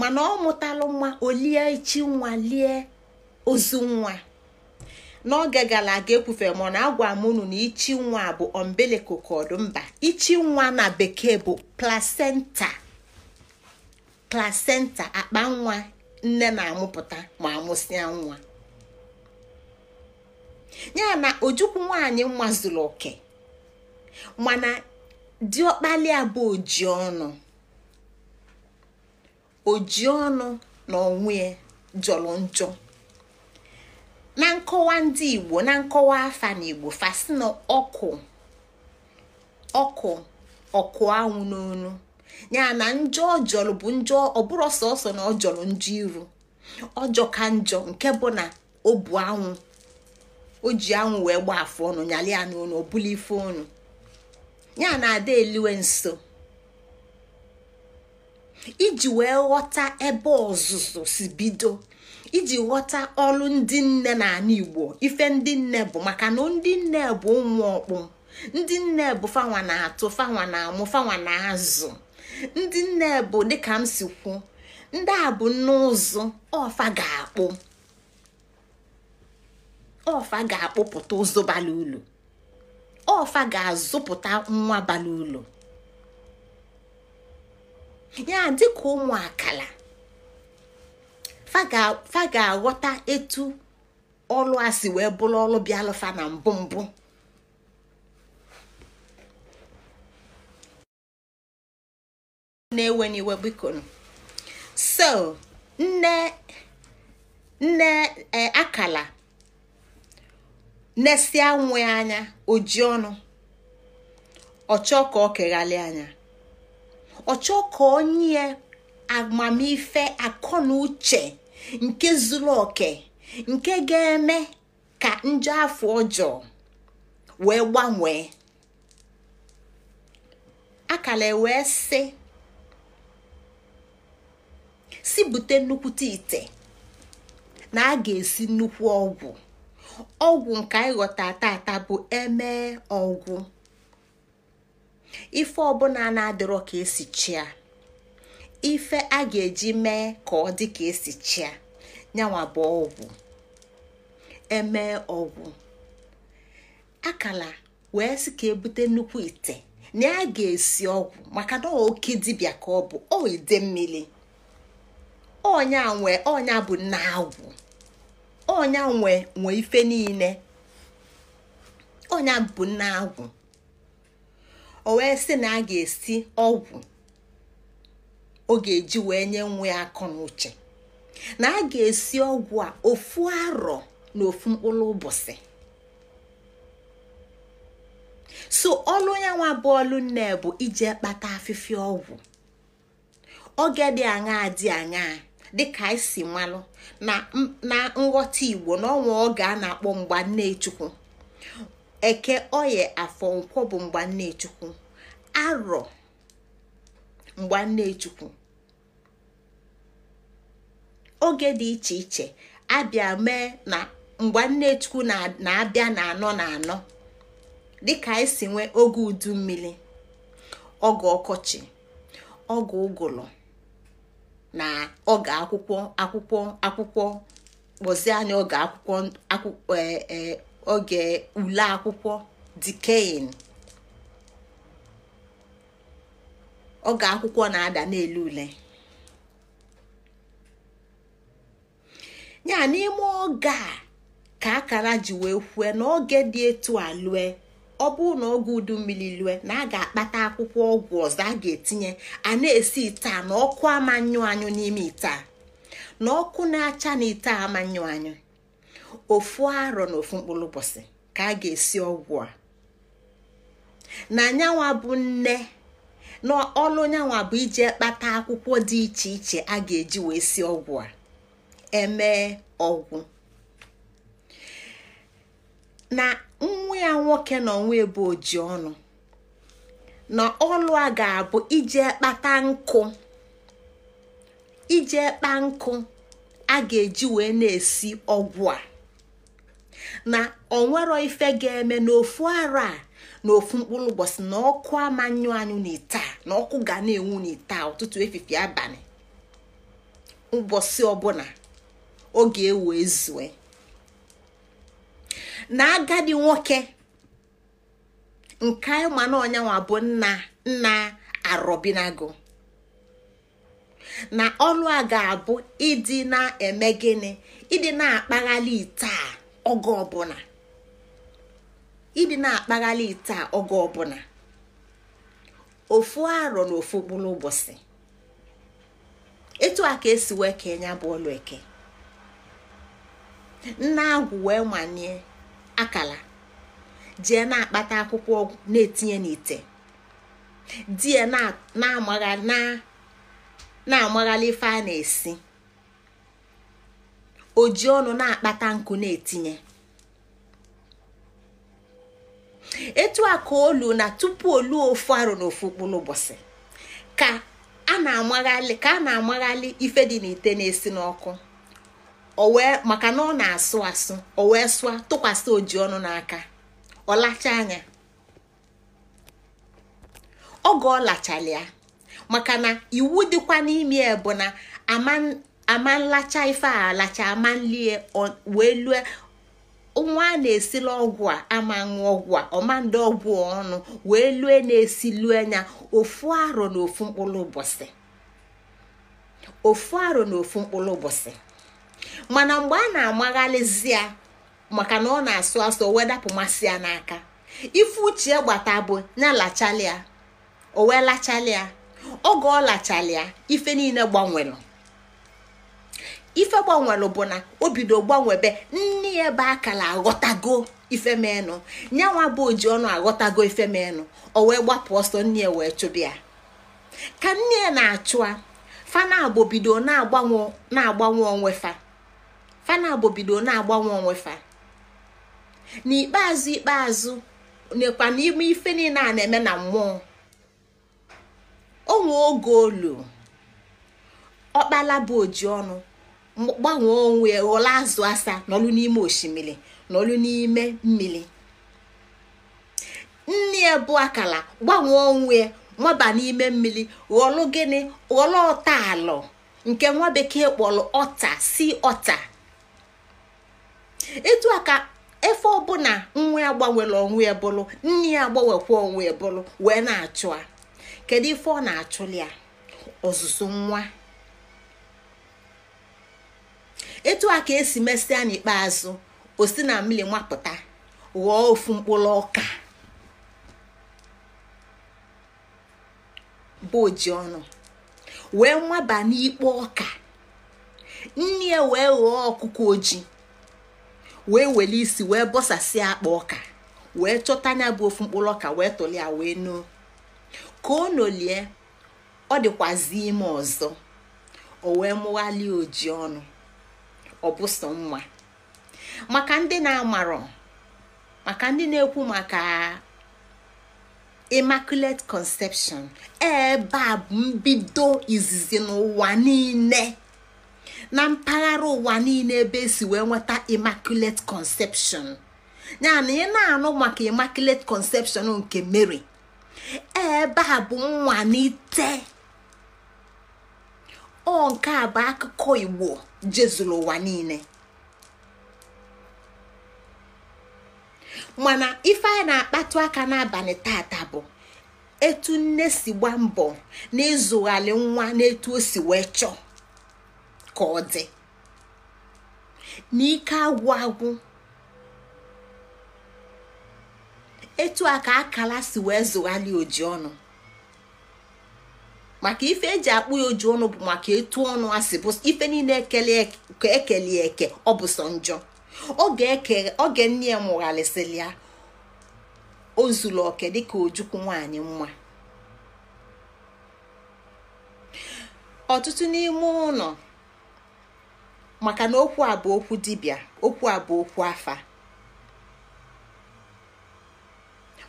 mana ọ mụtalụ nwa olie ichi nwa lie ozu nwa n'oge gara aga ekwufere mana agwa amụnụ na ichi nwa bụ umbilical cord mba ichi nwa na bekee bụ placenta akpa nwa nne na-amụpụta ma amụsịa nwa ya na ojukwu nwaanyị nwa zuru oke mana ọkpali abụ oji ọnụ oji ọnụ na onwe ya jọrọ njọ na nkọwa ndị igbo na nkọwa afa na igbo fasị na ọkụ ọkụ ọkụ anwụ n'onu ya na njọ ọjọrọ bụ njọ ọbụrụ sọsọ na ọjọrọ njọ iru ọjọ ka njọ nke bụ na obu bu anwụ o ji anwụ wee gba afụ ọnụ nyalị ya n'ọnụ ọ bụla ife ọnụ ya na ada eliwe nso iji wee ghọta ebe ọzụzụ si bido iji ghọta ọlụ ndị nne na n'ala igbo ife ndị nne bụ maka na ndị nne bụ ụmụ ọkpụ ndị nne bụ fanwa na-atụ fanwa na-amụ fanwa na-azụ ndị nne bụ dịka m si kwu ndị a bụ n'ụzụ ọfa ga-akpụ ọfa ga-akpụpụta ụzọ bara ulu ọfa ga-azụpụta nwa bara ulu ya dịka ụmụ akala fa ga-aghọta etu ọlụ a si wee bụrụ ọlụ bịalụfa na mbụ mbụ na-ewe n'iwe so nne nne e, akala nesịa nwe anya ojii ọnụ ọchọ ka ọ keghalị anya ọchọ ka onye amamife akọ na nke zuru oke nke ga-eme ka njọ afọ ọjọọ wee gbanwee akala wee sị si bute nnukwute ite na a ga-esi nnukwu ọgwụ ọgwụ nke anyị ghọta tata bụ eme ọgwụ ife ọbụla na-adịrọ ka esi chia ife a ga-eji mee ka ọ dị ka esi chia nyanwa bụ ọgwụ emee ọgwụ akala wee sị ka ebute nnukwu ite na ya ga-esi ọgwụ maka na oke dibịa ka ọ bụ ọ ide mmiri ọnya nwe ọnya bụ nna agwụ ọnya nwe nwe ife niile ọnya bụ nna agwụ o wee sị na a ga-esi ọgwụ ọ ga-eji wee nye nwa ya akọ na uche na a ga-esi ọgwụ a ofu arọ na ofu mkpụrụ ụbọchị so ọlụ bọọlụ bụ ọlụ nne bụ ije kpata afịfịa ọgwụ oge dị aṅaa dị aṅaa dịka anyị si na nghọta igbo na n'ọnwa oge a na-akpọ mgba nne eke oye afọ nkwọ bụ mgbannechukwu arọ mgbannechukwu oge dị iche iche abịa mee na mgbannechukwu na-abịa na anọ na anọ dịka anyị e si nwee oge udu mmiri oge ọkọchị oge ụgụrụ na oge akwụkwọ akwụkwọ akwụkwọ kpọzie anya oge akwụkwọ e, e, oge ule akwụkwọ dikein oge akwụkwọ na-ada n'elu ule ya n'ime oge a ka akara ji wee kwue n'oge dị etu a lue ọ bụrụ na oge udu mmiri lue na a ga-akpata akwụkwọ ọgwụ ọzọ a ga-etinye a na-esi ite a na ọkụ amanyụ anyụ n'ime ite a na ọkụ na-acha na ite a amanyụ anyụ ofu arọ na ofu mkpụrụ ụbọchị ka a ga-esi ọgwụ a na nyanwa bụ nne na ọlụ nyanwa bụ ije kpata akwụkwọ dị iche iche a ga-eji wee si ọgwụ a emee ọgwụ na nwa ya nwoke na onwe ebe oji ọnụ na ọlụ a ga-abụ ije kpata nkụ ije kpa nkụ a ga-eji wee na-esi ọgwụ a na onwero ife ga-eme n'ofu ara a na ofu mkpụrụ ụbọchị na ọkụ amanyụ anyụ n'ite na ọkụ ga na-enwu n'ite ụtụtụ efifi abalị ụbọchị ọbụla oge ewu ezue na agadi nwoke nke mana ọnyanwa bụ nna nna arọbinago na ọnụ a ga-abụ ịdị na-eme gịnị ịdị na-akpaghalị ite Ọgụ ọbụla ịdị na-akpaghalị ite a oge ọbụla ofu arọ na ofu mkpụrụ ụbọchị etu a ka esi wee kee ya bụ ọlụ eke nna agwụ wee nwanye akala jee na-akpata akwụkwọ ọgwụ na-etinye n'ite die na amaghara ife a na-esi oji ọnụ na-akpata nku na-etinye etu a ka olu na tupu olu ofu arụ n'ofu ofu kpụ ka a na-amaghalị ka a na-amaghalị ife dị n'ite na-esi n'ọkụ o wee maka na ọ na-asụ asụ o wee sụa tụkwasị oji ọnụ n'aka ọ lacha anya oge ọ lachala maka na iwu dịkwa n'ime ya bụ na ama ama nlacha ife a alacha ama wee lue nwa a na-esila ọgwụ a ama ọgwụ a ọma ọgwụ ọnụ wee lue na-esi lue anya ofu arọ na ofu mkpụrụ ụbọchị ofu arọ na ofu mkpụrụ ụbọchị mana mgbe a na-amaghalizi ya maka na ọ na-asụ asụ wedapụ masị ya n'aka ife uche gbata bụ ya lachalịa o wee lachalịa oge ọ lachalịa ife niile gbanwere ife gbanwere bụ na o bido gbanwebe nne ya ebe akara aghọtago ifemenụ nyanwa bụ oji ọnụ aghọtago ifemenụ o wee gbapụ ọsọ nne ya wee chụbịa ka nne ya na-achụa fana bido na-agbanwe na-agbanwe onwe fa fana bido na-agbanwe onwe fa n'ikpeazụ ikpeazụ nekwa n'ime ife niile a na-eme na mmụọ onwe oge olu ọkpala bụ oji ọnụ gbanwee onwe ghọọla azụ asa n'ọlụ n'ime osimiri n'ọlụ n'ime mmiri nne ya bụ akala gbanwee onwe nwaba n'ime mmiri ghọlụ gịnị ghọlụ ọta alụ nke nwa bekee kpọrọ ọta si ọta etu a efe ọbụla nwa ya gbanwere onwe ya bụrụ nne ya agbanwekwa onwe ya bụrụ wee na-achụ kedu ife ọ na achụlị ya ọzụzụ nwa etu a ka esi mesịa n'ikpeazụ osi na mmiri nwapụta ghọọ ofu mkpụrụ ọka bụ oji ọnụ wee nwaba n'ikpo ọka nne ya wee ghọọ ọkụkọ ojii wee were isi wee bọsasịa akpa ọka wee chọta anya bụ ofu mkpụrụ ọka wee tụli ya wee nuo ka o nolie ọ dịkwazi ime ọzọ o wee mụghalie ọnụ ọ mma maka ndị na-amarọ maka ndị na-ekwu maka immaculate conception ebe a bụ mbido izizi n'ụwa niile na mpaghara ụwa niile ebe esi wee nweta immaculate conception ya na ị na-anụ maka immaculate conception nke mere ebe a bụ nwa n'ite ọ nke a bụ akụkọ Igbo jezuru ụwa niile mana ife anyị na-akpatụ aka n'abalị tata bụ etu nne si gba mbọ n'ịzụghalị nwa n'etu o si wee chọọ ka ọ dị n'ike agwụ agwụ etu a ka akala si wee zụghalị oji ọnụ maka ife eji akpụ ya oju ọnụ bụ maka etu ọnụ asị bụ ife niile ekele eke ọ bụ sọ njọ oge nne ya mụgharịsịrị ya o zuru oke dịka ojukwu nwanyị mma ọtụtụ n'ime ụlọ maka na okwu a okwu dibia okwu a okwu afa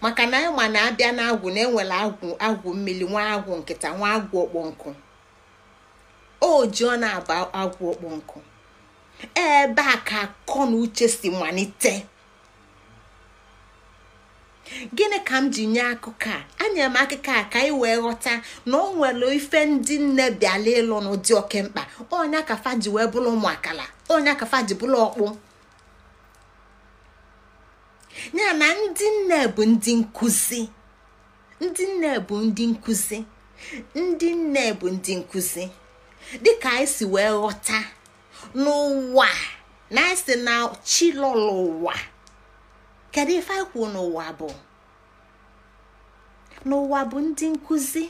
maka na ma na-abịa agwụ na enwere agwụ agwụ mmiri nwa agwụ nkịta nwa agwụ ọkpọ nkụ o ji ọ na-aba agwụ ọkpọ nkụ ebe a ka akọ na uche si malite gịnị ka m ji nye akụkọ a anyere m akụkọ a ka anyị wee ghọta na ọ nwere ife ndị nne bịala ịlụ n'ụdị oke mkpa ọnya kafa ji wee bụrụ ụmụakala ọnya kafa ji bụrụ ọkpụ ya na ndị nne bụ ndị nkụzi ndị nne bụ ndị nkụzi ndị nne bụ ndị nkụzi dịka anyị si wee ghọta n'ụwa na anyị si na chilọlọ ụwa kedu ife anyị kwuo n'ụwa bụ n'ụwa bụ ndị nkụzi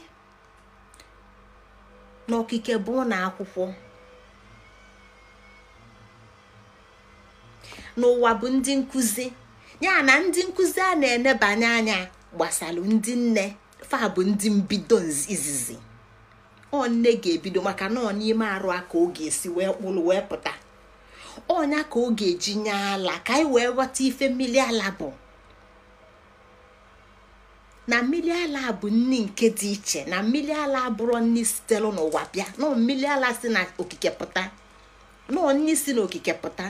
n'okike bụ ụlọ akwụkwọ n'ụwa bụ ndị nkụzi ya na ndị nkụzi a na-enebanye anya gbasalụ ndị nne fa bụ ndị mbido izizi ọ nne ga-ebido maka na ọ n'ime arụ a ka ọ ga-esi wee kpụrụ wee pụta ọnya ka ọ ga-eji nye ala ka anyị wee ghọta ife mmiri ala bụ na mmiri ala bụ nni nke dị iche na mmiri ala abụrụ nni sitere n'ụwa bịa na mmiri ala si na pụta na nni si n'okike pụta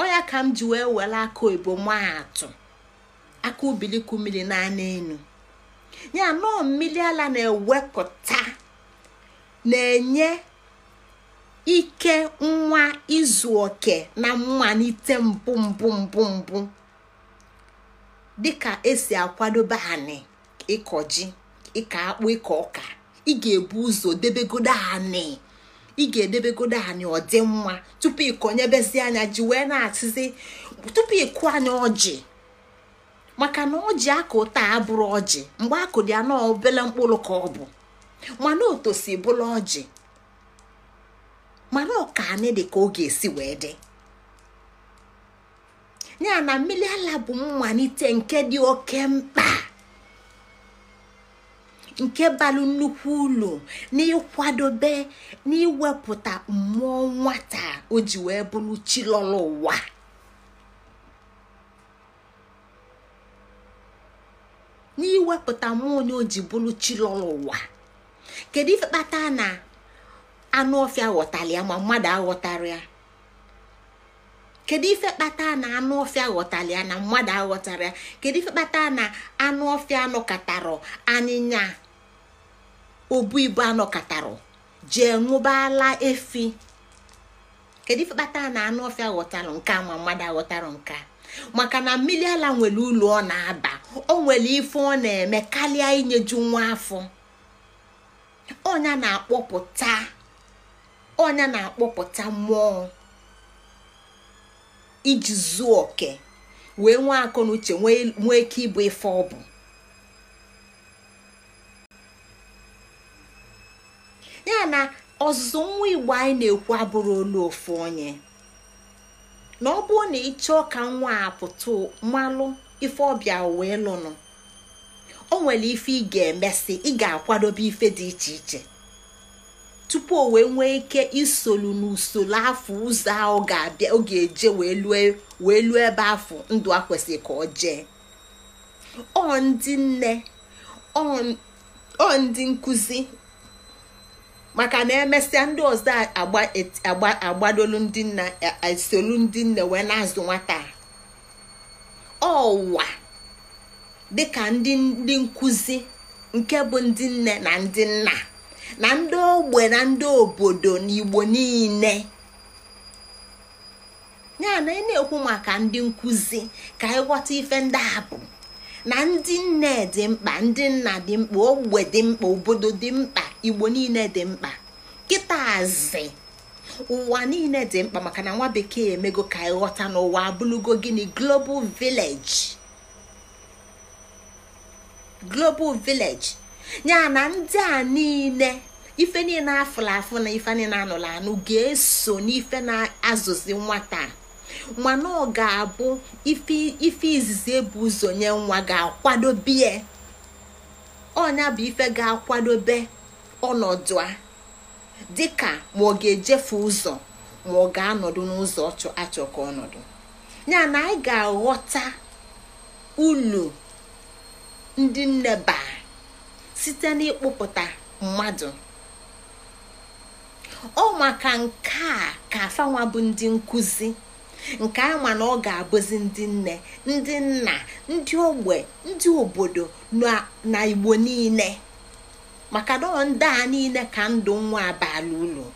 ọya ka m ji wee were aka oyibo maatụ aka ubiliku mmiri enu ya nọọ mmiri ala na-ewepụta na-enye ike nwa izu oke na mmalite mbụ mbụ mbụ mbụ dịka esi akwadobe anị ịkọ ji ịkọ akpụ ịkọ ọka ị ga-ebu ụzọ debegodo anị. ị ga-edebegodo anyị ọdịmma tupu ịkọnyebezi anya ji wee na-achịzi tupu ịkụ anya ọjị maka na ọjị akụ taa abụrụ ọjị mgbe akụ dị anọ obele mkpụrụ ka ọ bụ mana otosi bụla ọjị mana ọka anyị dị ka ọ ga-esi wee dị ya na mmiri ala bụ mmalite nke dị oke mkpa nke balụ nnukwu ụlọ n'ịkwadobe n'iwepụta mmụọ nwata o ji wee bụrụ chilọla ụwa n'iwepụta mmụọ onye o ji bụrụ chilọla ụwa kedu ife kpata na anụ ọfịa ghọtara ya ma mmadụ aghọtara ya kedu ife kpata na anụ ọfịa ghọtara ya na mmadụ aghọtara ya kedu ife kpata na anụ ọfịa nọkọtara anyịnya obu ibu anọkọtarụ jee ṅụbala efi kedu ife kpata na anụ ọfịa nke ma mmadụ aghọtara nke a maka na mmiri ala nwere ụlọ ọ na-aba o nwere ife ọ na-eme karịa inyeju nwa afọ ọnya na-akpọpụta ọnya na-akpọpụta mmụọ iji zuo oke wee nwee akọ na uche nwee ike ịbụ ife ọ bụ ọzụzụ nwa igbo anyị na-ekwu abụrụ olu ofu onye na ọ bụrụ na ịchọọ ka nwa a pụta ife ọbịa wee lụnụ o nwere ife ị ga-emesị ị ga-akwadobe ife dị iche iche tupu o wee nwee ike isolu n'usoro afọ ụzọ ahụ ga-abịa ọ eje wee luo ebe afọ ndụ a kwesịrị ka ọ jee ọ ndị nne ọ ndị nkụzi maka na emesịa ndị ọzọ agbadolu ndị nna esolu ndị nne wee na-azụ nwata ọwa dịka ndị ndị nkụzi nke bụ ndị nne na ndị nna na ndị ogbe na ndị obodo na igbo niile ya na ị na-ekwu maka ndị nkụzi ka ịghọta ife ndị a na ndị nne dị mkpa ndị nna dị mkpa ogbe dị mkpa obodo dị mkpa igbo niile dị mkpa kịtazi ụwa niile dị mkpa maka na nwa bekee emego ka ịghọta n'ụwa abụlugo gịnị global village global village ya na ndị a niile ife niile afụla afụ na ife niile anụla anụ ga-eso n'ife na-azụzi nwata mana ọ ga-abụ ife izizi ebu ụzọ nye nwa ga akwado ọnya bụ ife ga-akwadobe ọnọdụ a dịka ma ọ ga-ejefe ụzọ ma ọ ga-anọdụ n'ụzọ achọ ka ọnọdụ ya na anyị ga-aghọta ulu ndị nneba site n'ịkpụpụta mmadụ ọ maka nke a ka afanwa bụ ndị nkụzi nke ama na ọ ga-abụzi ndị nne ndị nna ndị ogbe ndị obodo na igbo niile maka na ndị a niile ka ndụ nwa abala ụlọ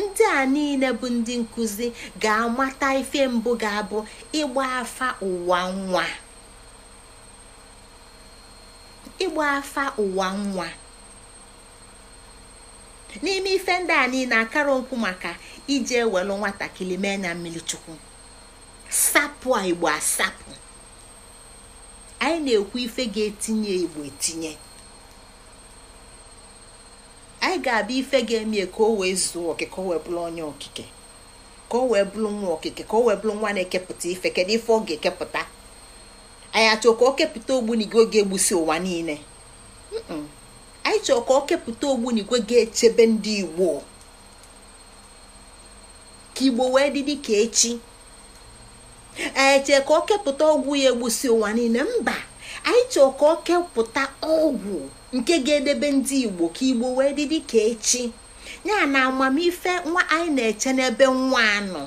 ndị a niile bụ ndị nkụzi ga-amata ife mbụ ga-abụ ịgba afa ụwa nwa ịgba afa ụwa nwa n'ime ife ndị a niile akara okwu maka ije ewelu nwatakịrị mee na mmiri chukwu sapụ a igbo asapụ anyị na-ekwu ife ga-etinye igbo etinye anyị ga-abịa ife ga-eme ka o wee zuo okike o wee bụrụ onye okike ka o wee bụrụ nwa okike ka o wee bụrụ nwa na-ekepụta ife kedu ife ọ ga-ekepụta anyị achọ ka o kepụta ogbunigwe oge egbusi ụwa niile anyị chọọ ka ọ kepụta n'igwe ga-echebe ndị igbo ka igbo wee dị dịka echi chee ka ọ kepụta ọgwụ ya egbusi ụwa niile mba anyị chọọ ka ọ kepụta ọgwụ nke ga-edebe ndị igbo ka igbo wee dị dịka echi ya na amamife nwa anyị na-eche n'ebe nwa anọ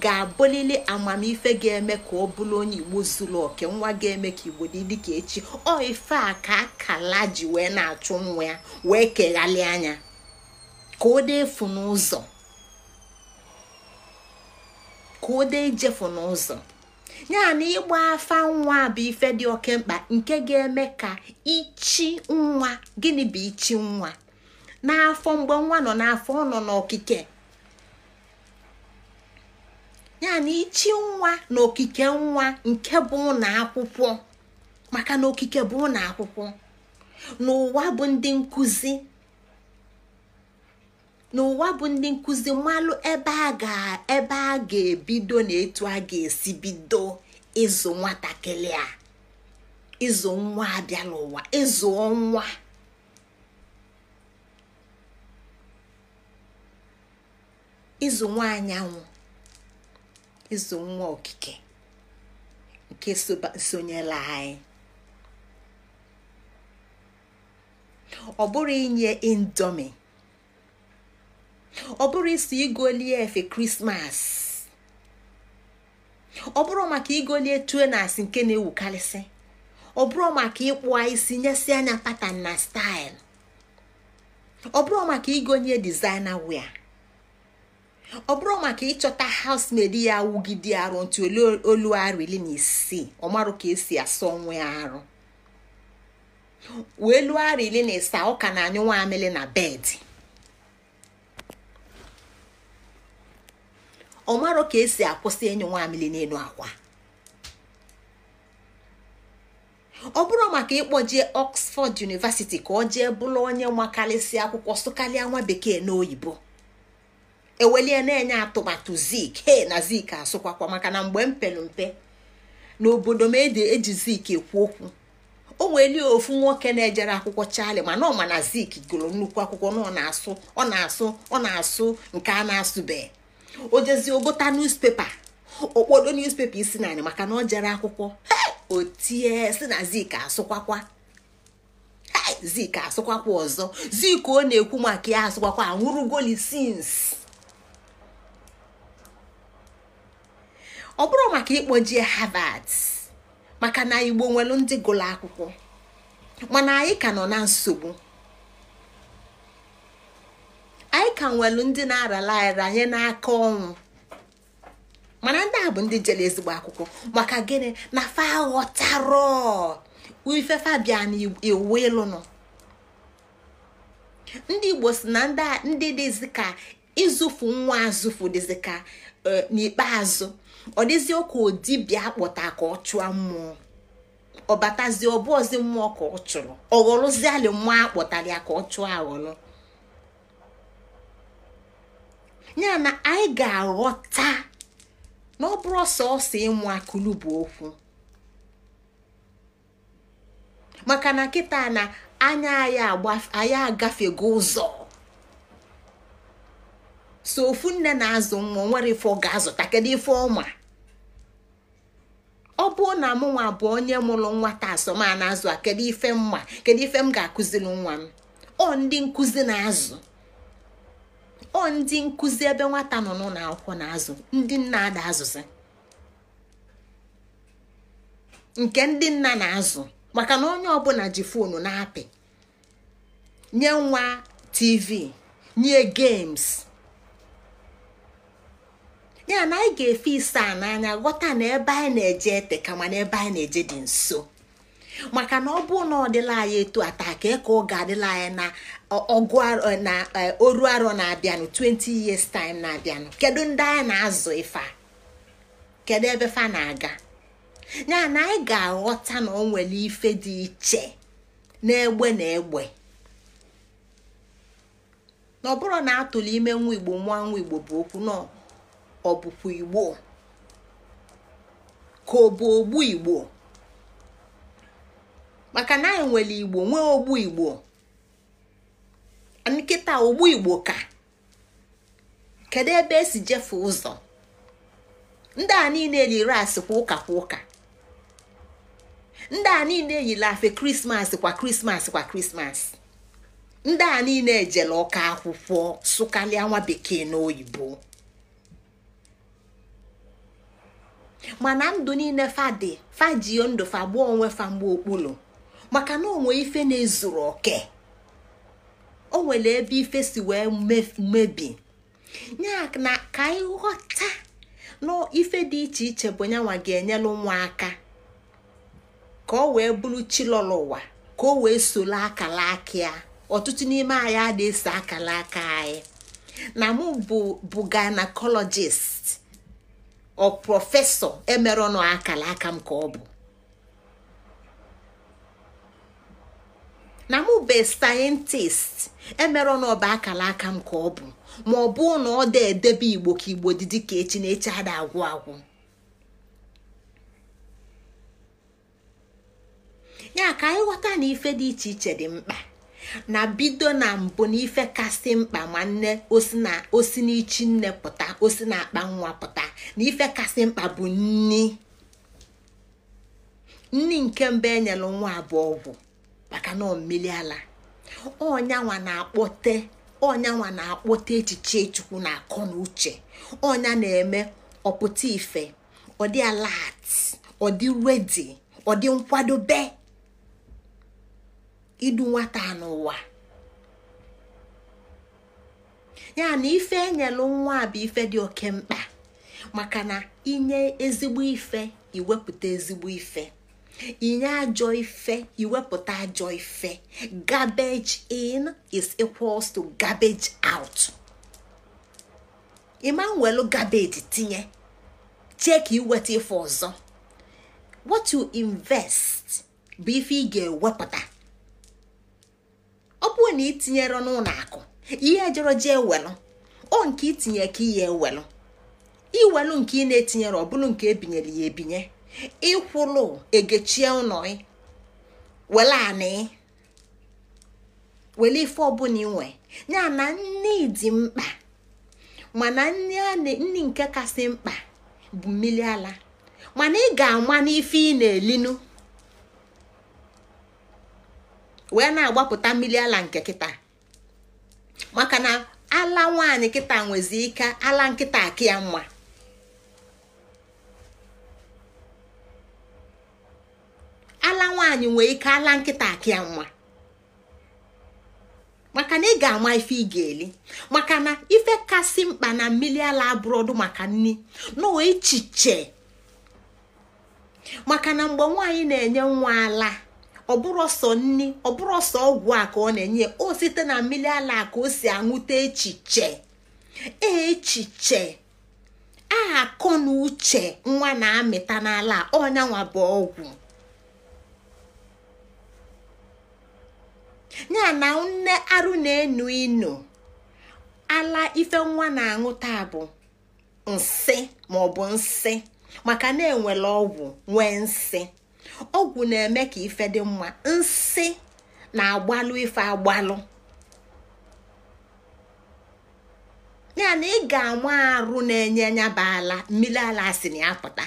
ga-abụlili amamife ga-eme ka ọ bụrụ onye igbo zuru oke nwa ga-eme ka igbo dị dịka echi ọ ife a ka akala ji wee na-achụ nwa ya wee keghalị anya ka ọ dị efu n'ụzọ ka ọ dị ijefu n'ụzọ ya na ịgba afa nwa bụ ife dị oke mkpa nke ga-eme ka ichi nwa gịnị bụ ichi nwa n'afọ mgbe nwa nọ n'afọ ọ nọ n'okike ya na ichi nwa na okike nwa nke bụ ụlọ akwụkwọ maka na okike bụ na akwụkwọ n'ụwa bụ ndị nkụzi n'ụwa bụ ndị nkụzi mmalụ ebe a ga-ebe a ga-ebido na etu a ga-esi bido ịzụ nwatakịrị a ịzụ nwa abịala ụwa ịzụ nwa ịzụ nwa anyanwụ ịzụ nwa okike nke sonyela anyị ọ bụrụ inye indomi ọ bụrụ isi igolie efe krismas ọ bụrụ maka igolie tuenas nke na-ewukarịsị ọ bụrụ maka ịkpụa isi nyesi anya patan na staịl ọ bụrụ maka igonye dizaina wia ọ bụrụ maka ịchọta housemaid ya wugide arụ ntị olu arụ iri na isii ọ marụ ka esi asọ nwe arụ wee lụọ arụ iri na isaa ọ ka na-anyụ nwa amịlị na bedị ọ marụ ka esi akwụsị ịnyụ nwa amịlị n'elu akwa ọ bụrụ maka ịkpọjee Oxford University ka ọ jee bụrụ onye makarịsị akwụkwọ sụkalịa nwa bekee n'oyibo ewelie na-enye atụmatụ zik he na zik asụkwakwa maka na mgbe m mpe n'obodo m eji zik ekwu okwu o nweli ofu nwoke na-ejere akwụkwọ chali mana ọma na zik gụrụ nnukwu akwụkwọ na ọ na-asụ ọ na-asụ ọ na-asụ nke a na-asụbe o jezi ogota niuspepa okpodo newspaper isi narị maka na ọ jere akwụkwọ o tie si na zik asụkwakwa zik asụkwakwa ọzọ zik ọ na-ekwu maka ya asụkwakwa anwụrụ golisins ọ bụrụ maka ịkpọjie havad maka na igbo nwelu ndị gụrụ akwụkwọ mana anyị ka nọ na nsogbu anyị ka nwelu ndị na-arala aranye n'aka ọnwụ mana ndị a bụ ndị jere ezigbo akwụkwọ maka gịnị na fa ghọtara ife fabia na iwu ịlụ nọ ndị igbo si na ndị dịzi ka ịzụfu nwa azụfu dịzi ka eh, n'ikpeazụ ọ dịzio ka bịa akpọta ka ọ chụọ mmụọ ọ batazie ọbụ mmụọ ka ọ chụrụ ọghọrụzialị mmụọ akpọtara ya ka ọ chụọ aghọrọ ya na anyị ga-aghọta na ọ bụrụ sọsọ ịmụ akụlụ bụ okwu maka na nkịta na anya anyị agafego ụzọ so ofu nne na-azụ nwa nwere ife ọ ga-azụta kedu ife ọma ọ bụ na mụ nwa bụ onye mụrụ nwata asọma na-azụ a kedu ife mma kedu ife m ga-akụziri nwa m ọ ndị nkụzi na-azụ ọ ndị nkụzi ebe nwata nọ n'ụlọ akwụkwọ na-azụ ndị nna ada azụzi nke ndị nna na-azụ maka na onye ọbụla ji fonu na-apị nye nwa tv nye games ya na anyị ga-efe ise a n'anya ghọta na ebe anyị na-eje ete ka mana ebe anyị na-eje dị nso maka na ọ bụ na ọ dịla anyị etu ata ka eka ọ ga-adịla anyị na ọgụ eh, na eh, oru arọ na-abịanụ 20 years time na-abịanụ kedu ndị anyị na-azụ ife kedu ebe fa na-aga ya na anyị ga-aghọta na ọ nwere ife dị iche n'egbe na egbe na ọ bụrụ na atụrụ ime nwa igbo nwa nwa igbo bụ okwu nọ ọ bụkwa igbo ka ọ bụ ogbu igbo maka na anyị nwere igbo nwee ogbu igbo nkịta ogbu igbo ka kedu ebe esi jefe ụzọ ndị a niile yiri asị kwa ụka ụka ndị a niile yiri afe krismas kwa krismas kwa krismas ndị a niile ejela ọka akwụkwọ sụkarịa nwa bekee na oyibo mana ndụ niile fadị fajio ndụ gbuo onwe famgbe okpulu maka na onwe ife na-ezuru oke o nwere ebe ife si wee mebi ya ka anyị ghọta na ife dị iche iche bụ nyanwa ga-enyelu nwa aka ka o wee bụrụ chilọlọ ụwa ka o wee solo akala aka ya ọtụtụ n'ime anyị a ese akala aka anyị na mụ bụ bụ gynecologist ọ prọfesọ emerọnụ akara aka m ka ọ bụ na mụ be sayentist emerọnụ ọba akara aka m ka ọ bụ ma ọ bụụ na ọ da edebe igbo ka igbo dị ka echi na echi ada agwụ agwụ ya ka anyị ghọta na ife dị iche iche dị mkpa na bido na mbụ na ife kasị mkpa nwanne nne osi n'ichi nne pụta osi na akpa nwa pụta na ife kasị mkpa bụ nni nni nke mba enyelu nwa abụọ ọgwụ maka na mmiri ala ọnyanwa na-akpọte ọnyanwa na-akpọte echiche chukwu na akọ na uche ọnya na-eme ọpụta ife ọ dị ọdị redi idu nwata n'ụwa ya na ife enyelu nwa bụ ife dị oke mkpa maka na inye ezigbo ife iwepụta ezigbo ife inye ajọ ife iwepụta ajọ ife garbage in is equals to garbage out ịma nwelu garbage tinye chee ka iweta ife ọzọ what you invest bụ ife ị ga-ewepụta ọ bụrụ na itinyere n'ụlọ akụ ihe jọrọ ji ewelụ o nke itinye ka ihe ewelụ iwelụ nke ị na-etinyere ọ bụrụ nke ebinyere ya ebinye ịkwụlụ egechie ụlọ ị e wele anị wele ife ọbụla inwe ya na nne dị mkpa mana nne nke kasị mkpa bụ mmiri ala mana ị ga-ama n'ife ị na-elinu wee na-agbapụta mmiri ala nke kịta maka na ala nwaanyị kịta nwezi ike ala nkịta akị ya mma ala nwanyị nwee ike ala nkịta akị mma maka na ị ga-ama ife ị ga-eli maka na ife kasị mkpa na mmiri ala abụrọdụ maka nni n'ụwa maka na mgbe nwaanyị na-enye nwa ala ọbụrụ ọsọ nni ọbụrụ ọsọ ọgwụ a ka ọ na-enye o site na mmiri ala ka o si anwụta echiche echiche aha akọ na uche nwa na-amịta n'ala ọnyanwa bụ ọgwụ ya na nne arụ na-enu inu ala ife nwa na-aṅụ taa bụ nsị maọbụ nsị maka na enwere ọgwụ nwee nsị ọgwụ na-eme ka ife dị mma nsi na-agbalụ ife agbalụ ya na ị ga-anwa arụ na-enye nyaba ala mmiri ala si na ya pụta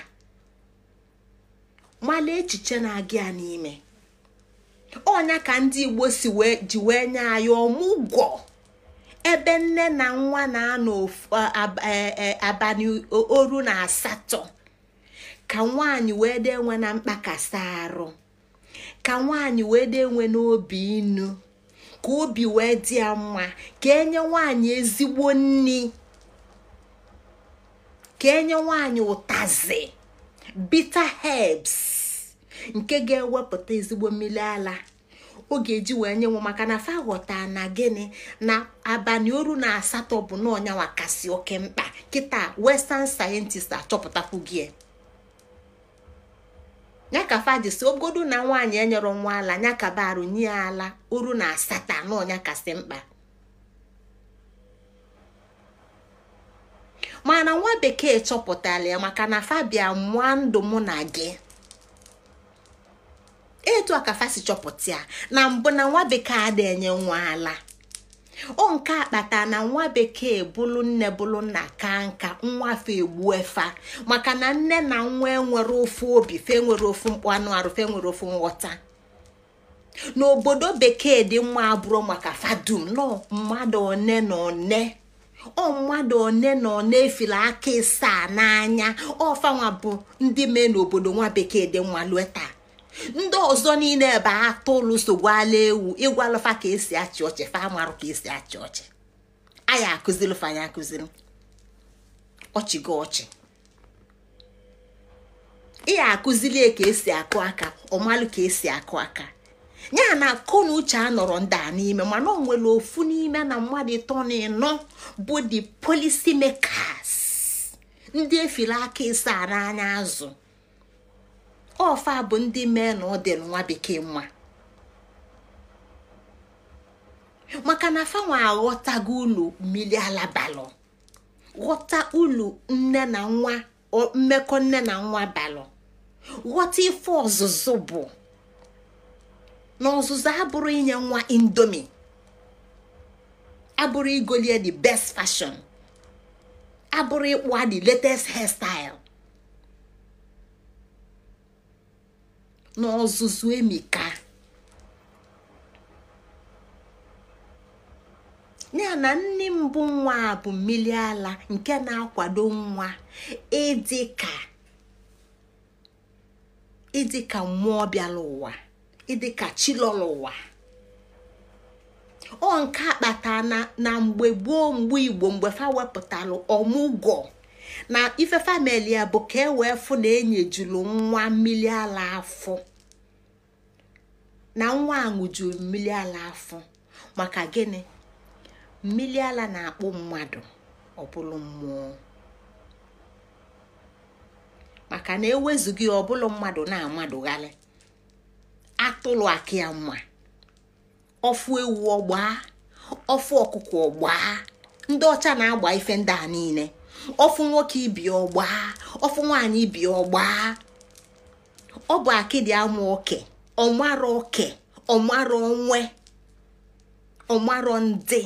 mala echiche na-aga ya n'ime ọnya ka ndị igbo si ji wee nye anyị ọmụgwọ ebe nne na nwa na-anọ abalị oru na asatọ ka nwaanyị wee dị enwe na mkpakasị arụ ka nwaanyị wee dị enwe n'obi inu ka obi wee dị ya mma ka enye nwaanyị ezigbo nni ka enye nwaanyị ụtazi bitter herbs nke ga-ewepụta ezigbo mmiri ala ọ ga-eji wee nye maka na fa ghọta na gịnị na abalị oru na asatọ bụ na ọnyanwa kasị oke mkpa kịta western scientist achọpụtakwugie ya ka si ogodu na nwaanyị enyerọ nwa ala ya ka baru nye ala uru na asatọ anọ kasị mkpa mana nwa bekee chọpụtara ya maka na fabia mụa ndụ mụ na gị etu a ka fasi chọpụta ya na mbụ na nwa bekee adịenye nwa ala o nke akpata na nwa bekee bụlụ nne bụlụ nna ka nka nwa egbu efa maka na nne na nwa enwere ofu obi fe nwere ofu mkpụ anụ arụ fe nwere ofu nghọta n'obodo bekee dị nwa abụrụ maka fadum nọ mmadụ one na one ọ mmadụ one na one efila aka ịsaa n'anya ọfanwa bụ ndị mee n'obodo nwa bekee dị mma lue ndị ọzọ niile ebe nsogbu ala ewu ịgwalụfa ka esi achị ọchị fa amarụ ka esi achị ọchị anyị akụziri fanya akụziri ọchị gị ọchị ihe akụzili ka esi akụ aka ọmalụ ka esi akụ aka ya na akụ na uche anọrọ ndị a n'ime mana ọ ofu n'ime na mmadụ ịtọ na ịnọ bụ the policy makers ndị efila aka ịsa n'anya azụ ofa bụ ndị mee na ọ dị nwa bekee nwa maka na fanwa aghọtago ulu mmiri ala balụ ghọta ụlọ nne na nwa mmekọ nne na nwa balụ ghọta ife ọzụzụ bụ na ọzụzụ abụrụ inye nwa indomi abụrụ igolie the best fashion abụrụ ịkpụ di latest hairstyle n'ọzụzụ emika ya na nne mbụ nwa a bụ mmiri ala nke na-akwado nwa ịdịka ịdịka mmụọ bịara ụwa ịdịka chilọrọ ụwa ọ nke akpata na mgbe gboo mgbe igbo mgbe fa wepụtara ọmụgwọ na ife famili ya bụ ka e wee fụ na enyejulu nwa mmiri ala afọ na nwa aṅụjuru mmiri ala afọ maka gịnị mmiri ala na-akpụ mmadụ ọ bụrụ mmụọ maka na ewezughị ọ mmadụ na-amadụgharị atụlụ aki ya mma ọfụ ewu ọgbaa ọfụ ọkụkọ ọgbaa ndị ọcha na-agba ife ndị a niile ọfụ nwoke ibi ọgbaa ọfụ nwaanyị ibi ọgbaa ọ bụ akịdị amụ oke. ọmarọ oke ọmarọ onwe ọmarọ ndị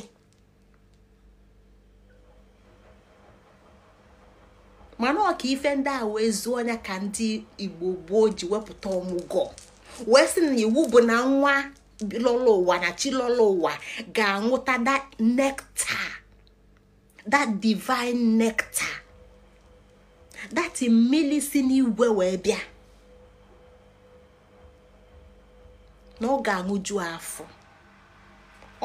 mana ọka ife ndị a wee zuo ọnya ka ndị igbo gboo ji wepụta ọmụgwọ wee sị na iwu bụ na nwa lọla ụwa na chi lọla ụwa ga anwụta that nectar that divine nectar that mmiri si n'igwe wee bịa na ọ ga-aṅụju afọ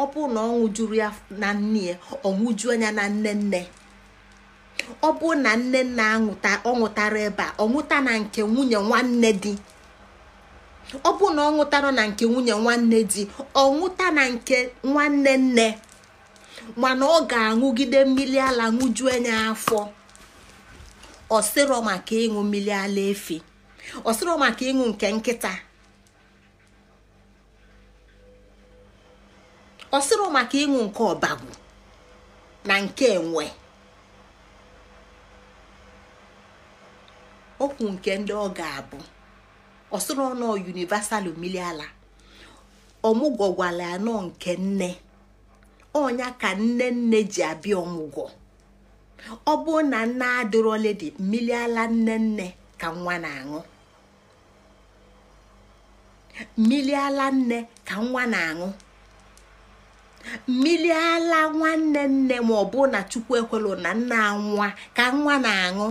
ọ bụrụ na ọ ṅụjuru ya na nne ya ọ ṅụju anya na nne nne ọ bụrụ na nne nna ọ ṅụtara ebe a ọ ṅụta na nke nwunye nwanne di ọ bụrụ na ọ ṅụtara na nke nwunye nwanne di ọ ṅụta na nke nwanne nne mana ọ ga-aṅụgide mmiri ala ṅụju anya afọ ọsịrọ maka ịṅụ mmiri ala efi ọsịrọ maka ịṅụ nke nkịta ọ maka ịṅụ nke ọbagwu na nke enwe okwu nke ndị ọ ga-abụ ọsịrọ nọ universal miliala ọmụgwọ gwara anọ nke nne ọnya ka nne nne ji abịa ọmụgwọ ọ bụ na nne adịrọledi mmiri ala nne nne ka nwa na-aṅụ nne ka nwa na-aṅụ mmiri ala nwanne nne ma ọ na chukwu ekwelụ na nna nwa ka nwa na-aṅụ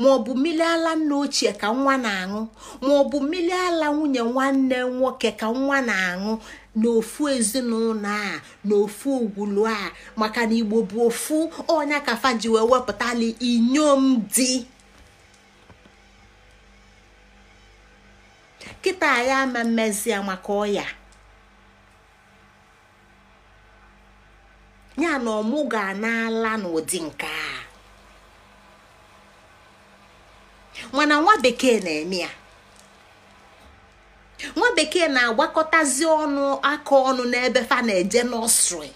ma ọ bụ mmiri ala nna ochie ka nwa na-aṅụ ma ọ bụ mmiri ala nwunye nwanne nwoke ka nwa na-aṅụ n'ofu ezinụlọ a n'ofu ogwulu a maka na igbo bụ ofu ọnya ka faji wee wepụtali inyom di kịta ya ama mmezi ya maka ọya ya na ọmụ ga-anala n'ụdị nke a mana nwa bekee na-eme ya nwa bekee na-agbakọtazi ọnụ aka ọnụ n'ebe fa na-eje nọsrị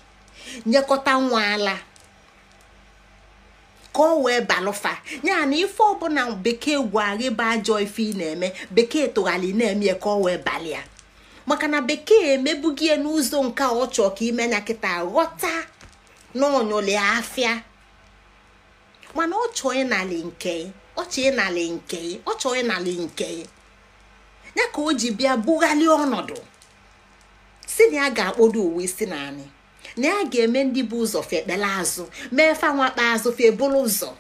nyekọta nwa ala ka o wee balụfa ya na ife ọbụla bekee gwagị bụ ajọ ife ị na-eme bekee tụghali na-eme ka o wee balịa maka na bekee ya n'ụzọ nke ọ chọọ ka ime ya kịta ghọta n'onyoli afia. mana ọ chọọ nke ọ chọọ ịnalị nke ọ chọọ nke ya ka o ji bịa bughali ọnọdụ si na ya ga akpodu uwe si na anyị na ya ga-eme ndị bụ ụzọ fekpela azụ mee fanwakpa azụ febulu ụzọ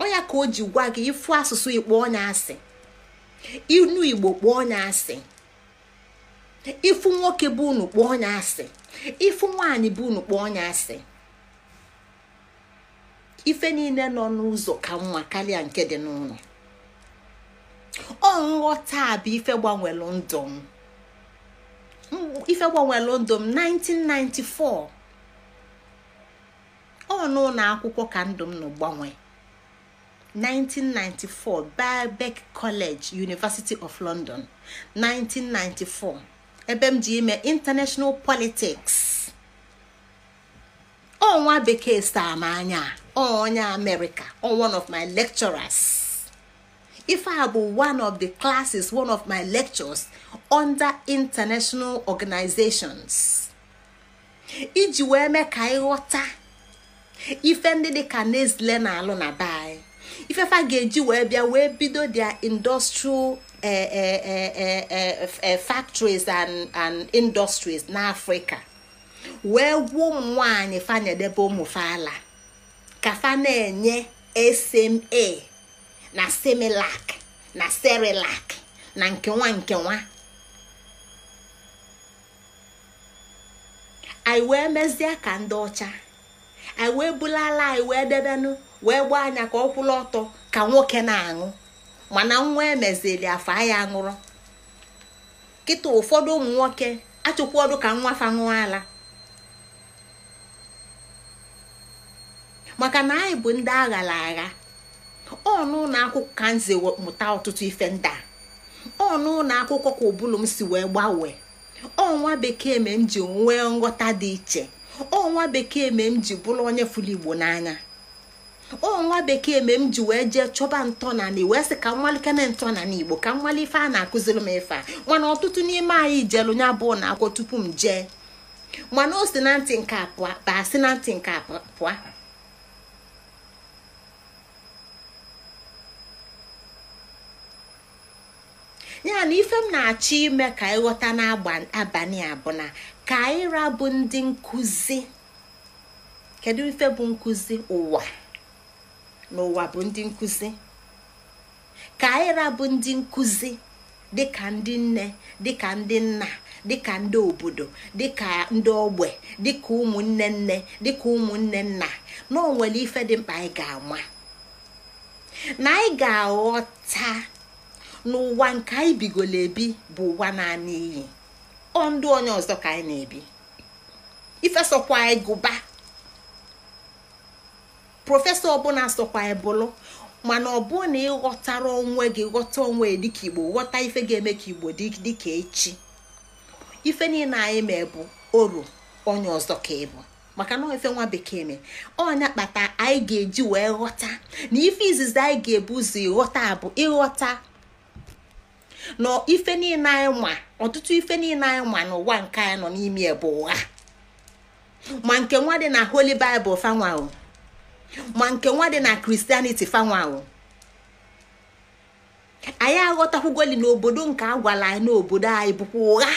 onya ka o ji gwa gị ịfụ asụsụ ikpo onya asị inu igbo kpọọ onya asị ịfụ nwoke bụ unu kpọọ onya asị ifu nwaanyị bụ unu onye asị ife niile nọ n'ụzọ ka mma karịa nke dị n'ụlọ ọ nghọta bụ ife gbanwelụ ndụ ife ndụ 1994 ọ n'ụlọ akwụkwọ ka ndụm m nọ gbanwee 1994 Birkbeck College University of London 1994 ebe m ji ime international politics ọnwa bekee saa m anya onye amerịka one of my lecturers ife a bụ one of the classes one of my lectures under international organizations iji wee mee ka ịghọta ife ndị ka Nestle na-alụ na ifefa ga-eji wee bịa wee bido their industrial eh, eh, eh, factories and and industries n'afrịka wee gwuo ụmụ nwaanyị fanyedebe ka fa na-enye SMA na Similac na Cerelac na nkenwa nkenwa anyị wee mezie ka ndị ọcha anyị wee bulala anyị wee debenụ wee gbaa anya ka ọ kwụla ọtọ ka nwoke na-aṅụ mana nwa emezili afa ya aṅụrụ kịta ụfọdụ ụmụ nwoke achụkwa ka nwa fa ṅụọ ala maka na anyị bụ ndị aghara agha ọ n'ụlọ akwụkwọ ka nze mụta ọtụtụ ife ndị a ọ n'ụlọ akwụkwọ ka ụbụlụ m si wee gbanwee ọnwa bekee me m ji nwee nghọta dị iche ọnwa bekee me m ji bụrụ onye fụrụ igbo n'anya o nwa bekee me m ji wee jee chọba ntọnani wee sị ka nwalike na ntọnani igbo ka nwale ife a na-akụziri m ife a mana ọtụtụ n'ime anyị jelu nya bụ na akwụkwọ tupu m jee mana o si na ntị nke a pụa si na ntị nke a pụa ya na ife m na-achọ ime ka ịghọta n'abalị a bụ na ka anyị bụ ndị nkụzi kedu ife bụ nkụzi ụwa n'ụwa bụ ndị nkụzi ka anyịra bụ ndị nkụzi dịka ndị nne dịka ndị nna dịka ndị obodo dịka ndị ogbe dịka ụmụnne nne dịka ụmụnne nna na ife dị mkpa anyị ga-ama na anyị ga-aghọta n'ụwa nke anyị bigoro ebi bụ ụwa naanị iyi ọ ndụ onye ọzọ ka anyị na-ebi ife anyị gụba prọfesọ ọbụla sọkwa ebulu, mana ọ bụ na ịghọtara onwe gị ghọta onwe dịka igbo ghọta ife ga-eme ka igbo dịka echi ife niile anyị ma bụ oru onye ọzọ ka ịbụ maka na ife nwa bekee me ọnya kpata anyị ga-eji wee ghọta na ife izizi anyị ga-ebu ụzọ ịghọta bụ ịghọta na ife niile anyị ma ọtụtụ ife niile anyị ma n'ụwa nke anyị nọ n'ime ebu ụgha ma nke nwa dị na holi baịbụl fanwa ma nke nwa dị na kristianity fanwahụ anyị aghọtakwugoli n'obodo nke agwala anyị n'obodo anyị bụkwa ụgha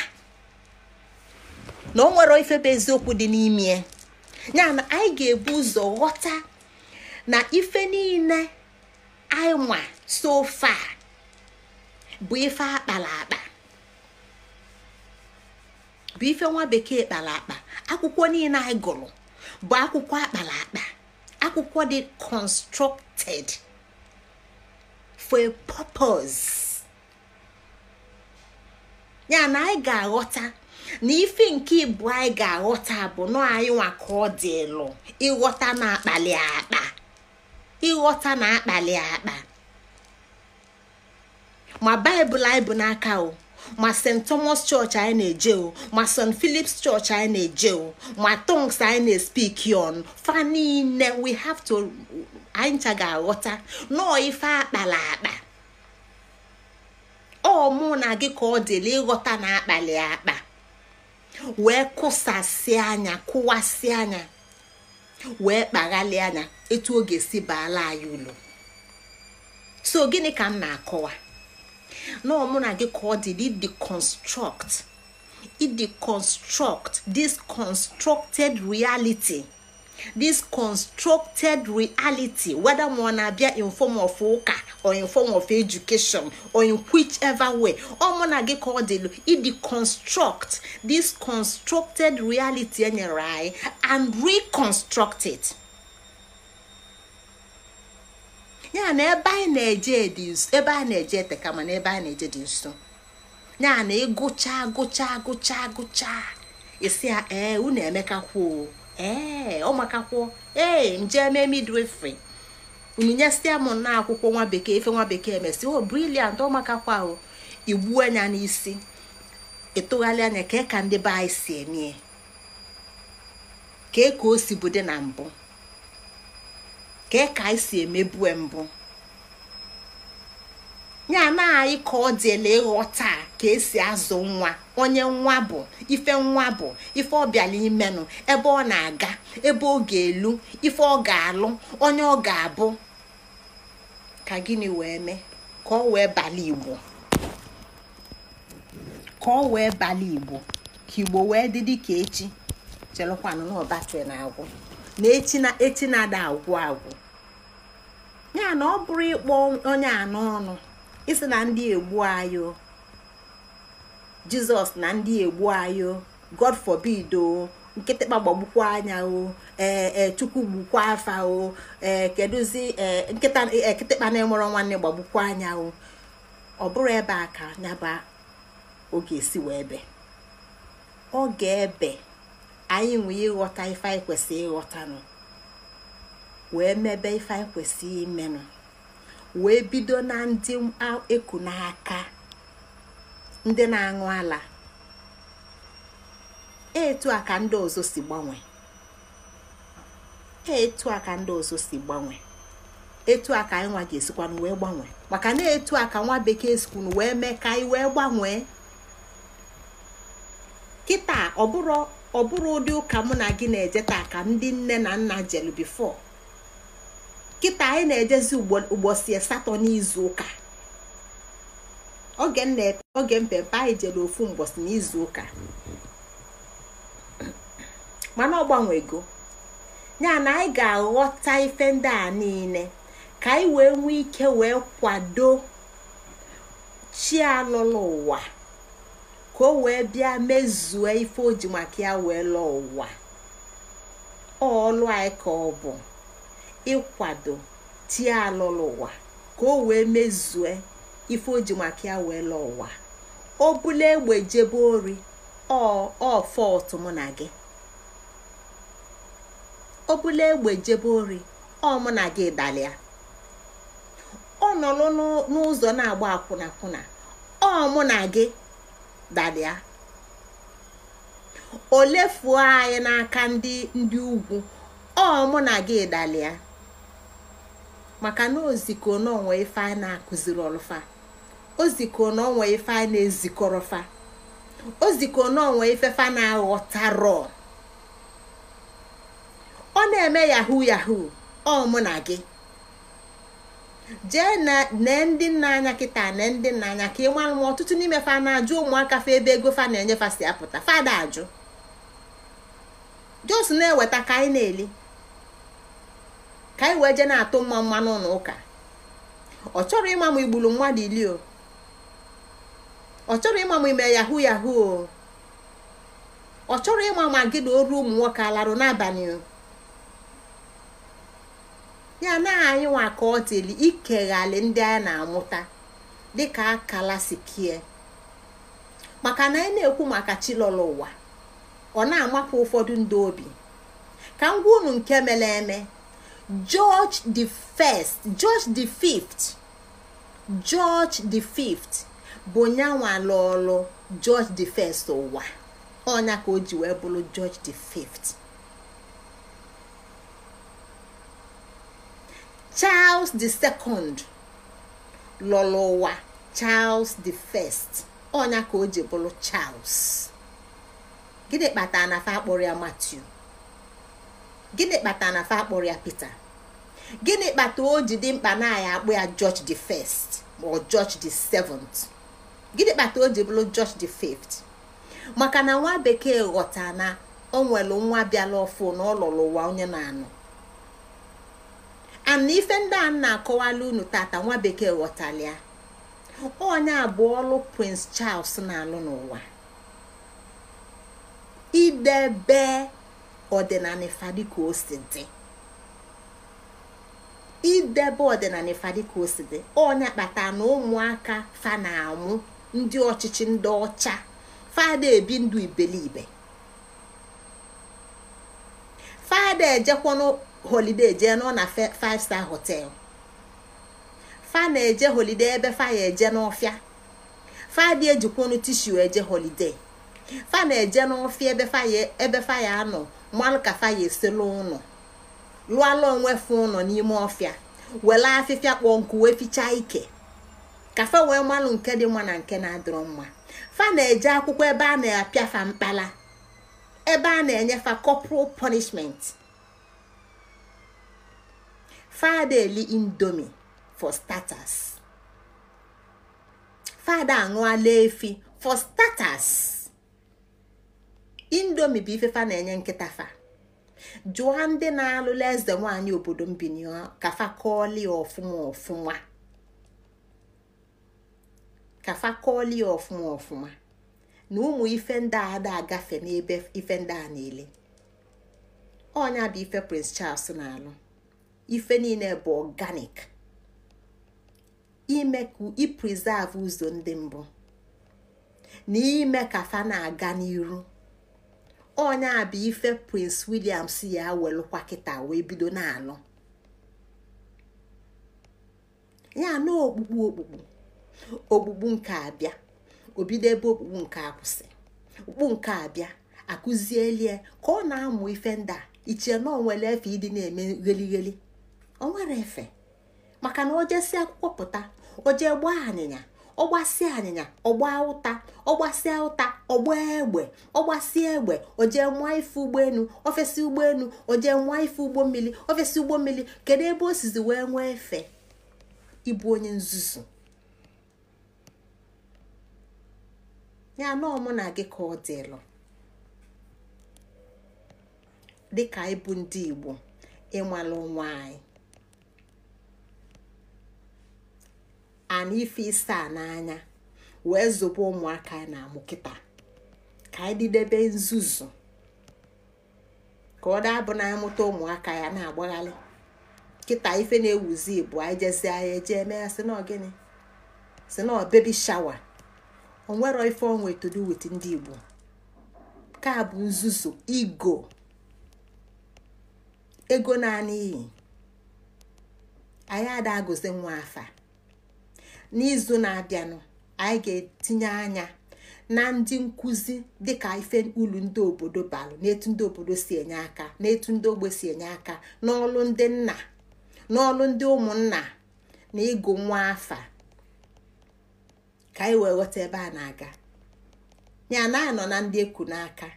na o nwere ifebe bụ eziokwu dị n'ime ya na anyị ga-ebu ụzọ ghọta na ife niile anyị nwa sofa bụ ife akpara akpa bụ ife nwa bekee kpara akpa akwụkwọ niile anyị gụrụ bụ akwụkwọ akpara akpa akwụkwọ dị constructed for a purpose ya na anyị ga-aghọta na ife nke ibu anyị ga-aghọta bụ nọ anyị nwa ka ọ dị ịlụ ịghọta na-akpali akpa ịghọta na-akpali akpa ma baịbụl anyị bụ n'aka o ma st thomas church anyị na-eje ma st philips church anyị na-eje ma tongues anyị na-espiki on fa niile we have to anyị ncha ga-aghọta nọọ ife akpala akpa ọ mụ na gị ka ọ dịla ịghọta na akpali akpa wee kụsasị anya kụwasị anya wee kpaghalị anya etu oge ga-esi baala anyị ụlọ so gịnị ka m na-akọwa na ọ mụ na gị ka ọ dị deconstruct ideconstruct this constructed reality this constructed reality whether ma ọ na-abịa in form of ụka or in form of education or in ever way ọ mụ na gị ka ọ dịlu ideconstruct this constructed reality enyere anyị and reconstruct it. ya na ebe anyị na-eje dị ebe anyị na-eje ete kama na ebe anyị na-eje dị nso ya na ịgụcha gụcha gụchaa gụcha isi ya ee unu emekakwuo ee ọmakakwuo ee nje eme onyinye stia m na akwụkwọ nwa bekee efe nwa bekee emesi o oh, briliant ọmakakwa ahụ igbuo anya n'isi ịtụgharị anya ka ka ndị be anyị si emie ka ka o si bude na mbụ kee ka anyị si emebu mbụ ya na anyị ka ọ dịela ịghọta ka esi azụ nwa onye nwa bụ ife nwa bụ ife ọ bịala imenụ ebe ọ na-aga ebe ọ ga-elu ife ọ ga-alụ onye ọ ga-abụ ka gịnị wee mee ka ọ wee bala igbo ka ọ wee bala igbo ka igbo wee dị dị ka echi chelụkwanụ na ọbatịrị na agwụ na echi na-ada agwụ agwụ ya na ọ bụrụ ịkpọ onye anọ ọnụ isi na ndị egbu ayo jizọs na ndị egbu ayo god forbid o nkịtịkpa gbagbukwa anya o ee e, chukwu gbukwa afa o ee kedụzi e, nkịta ekịtịkpa na-enwere nwanne gbagbukwa anya o ọ bụrụ ebe a ka nyaba oge esi wee ebe ga ebe anyị nwee ịghọta ife anyị kwesịrị ịghọtanụ wee mebe ife anyị kwesịrị imenụ wee bido na ndị eku n'aka ndị na-aṅụ ala etu a ka ndị ọzọ si gbanwe etu a ka ndị ọzọ si gbanwe etu a ka anyị nwa ga-esikwanụ wee gbanwe maka na etu a ka nwa bekee sikwunu wee mee ka anyị wee gbanwee kịta ọbụrụ ụdị ụka mụ na gị na-eje taa ka ndị nne na nna jelu bifo kịta anyị na-ejezi ụbọchị asatọ n'izu ụka oge mpempe anyị jere ofu mbọchị n'izu ụka mana ọ gbanwego ya na anyị ga-aghọta ife ndị a niile ka anyị wee nwee ike wee kwado chi alụlụ ụwa ka o wee bịa mezue ife o ji maka ya wee lụọ ụwa ọlụ anyị ka ọ bụ ịkwado tie alụlụ ụwa ka o wee mezue ife o ji maka ya wee lụọ ụwa o bụla egbe jebe ori ọ fọtụ mụ na gị o egbe jebe ori ọ mụ na gị dalịa ọ nọrọ n'ụzọ na-agba akwụna kwụna ọ mụ na gị dalịa o lefuo anyị n'aka ndị ndị ugwu ọ mụ na gị dalịa maka na oziko na ife anyị na-akụziri ọlụfa oziko ife anyị na-ezikọrọfa oziko ifefa na-aghọtarọ ọ na-eme yahoo yahoo ọ mụ na gị jee nee ndị nna anya kịta nee ndị nna anya ka ị mara ma ọtụtụ n'ime fa na-ajụ ụmụaka fa ebe ego fa na-enye fa si apụta fada ajụ jos na-eweta ka anyị na-eli ka anyị wee jee na-atụ mma mma n'ụlọ ụka ọ chọrọ ịma ma igburu mmadụ ili o ọ chọrọ ịma ma ime yahu yahu o ọ chọrọ ịma ma gị na oru ụmụ nwoke alarụ n'abalị ya na anyị nwa ka ọ teli ikeghali ndị anyị na-amụta dịka akala sikie maka na anyị na-ekwu maka chilọla ụwa ọ na-amapụ ụfọdụ ndị obi ka m gwa unu nke mere eme George the first George the fifth George the fifth bụ nyanwa lụọlụ George the first ụwa ọnya ka o ji wee bụrụ George the fifth Charles the second lụrụ ụwa Charles the first ọnya ka o ji bụrụ Charles gịnị kpatara na fa akpọrọ ya Matthew gịnị kpatara na fa akpọrọ ya Pita gịnị kpata o ji dị mkpa na ya akpụ ya George the first ma George the seventh gịnị kpata o ji bụrụ George the fifth maka na nwa bekee ghọta na o nwere nwa bịala ọfụ na ọ lụrụ ụwa onye na-anụ ana ife ndị a na-akọwala unu tata nwa bekee ghọtara ya onye abụọ ọlụ Prince Charles na-alụ n'ụwa idebe ọdịnala ifa dịka o si dị idebe ọdịnala ifa dịka o si dị onye kpata na ụmụaka fa na-amụ ndị ọchịchị ndị ọcha fada ebi ndụ ibelibe fada ejekwa holide jee nọ na five star hotel fa na-eje holide ebe ya eje n'ọfịa fada ejikwonu tishu eje holide fa na-eje n'ọfịa ebe fa ya anọ mmanụ kafa fa ya eselu ụnụ lụọla onwe fụ ụnọ n'ime ọfịa wela afịfịa kpọọ nkụ wee fichaa ike kafa wee malụ nke dị mma na nke na-adịrọ mma fa na-eje akwụkwọ ebe a na-apịa fa mkpala ebe a na-enyefa corporal punishment fada eli indomi for starters fada aṅụala efi for starters indomi bụ ifefa na-enye nkịta fa jụọ ndị na-alụla eze nwanyị obodo mbini ka fa kọọli ọfụma ọfụma ka fa kọọli ọfụma ọfụma na ụmụ ife ndị ada agafe n'ebe ife ndị a niile ọnya bụ ife prince charles na-alụ ife niile bụ organic ime ka ipreserve ụzọ ndị mbụ na ime ka fa na-aga n'iru onye a bụ ife prince william si ya welụkwa kịta wee bido na-alụ ya na okpukpu okpukpu okpukpu nke abịa obido ebe okpukpu nke akwụsị okpukpu nke abịa akụzielie ka ọ na-amụ ife ndị a iche na onwere efe ịdị na-eme gheligheli onwere efe maka na o jesi akwụkwọ pụta o jee gbaa anyịnya ọgbasịa anyịnya ọgba ụta ọgbasịa ụta ọgba egbe ọgbasịa egbe ojee nwa ife ụgbọelu ofesi ụgbọelu ojee nwa ife ụgbọ mmiri ofesi ụgbọ mmiri kedu ebe o sizi wee nwee efe ịbụ onye nzuzu ya na ọmụ na gị ka ọ dịlụ dịka ịbụ ndị Igbo ịmalụ nwaanyị anyị ana ife ise a n'anya wee zobe ụmụaka na-amụ kịta ka anyị didebe nzuzu ka ọ dabụ na amụta ụmụaka ya na agbagharị kịta ife na-ewuzi bụ anyị jezi anyị eje eme ya si na gịnị si na bebi shawa onwero ife onwe to ndị Igbo ka nzuzu igo ego naanị iyi anyị ada agụzi nwa afa n'izu na-abịanụ anyị ga-etinye anya na ndị nkụzi dịka ife ulu ndị obodo balụ n'etu ndị obodo si enye aka n'etu ndị ogbe si enye aka n'ọlụ ndị nna n'ọlụ ndị ụmụnna na ịgụ nwa afa ka anyị wee ghọta ebe a na-aga ya na anọ na ndị eku n'aka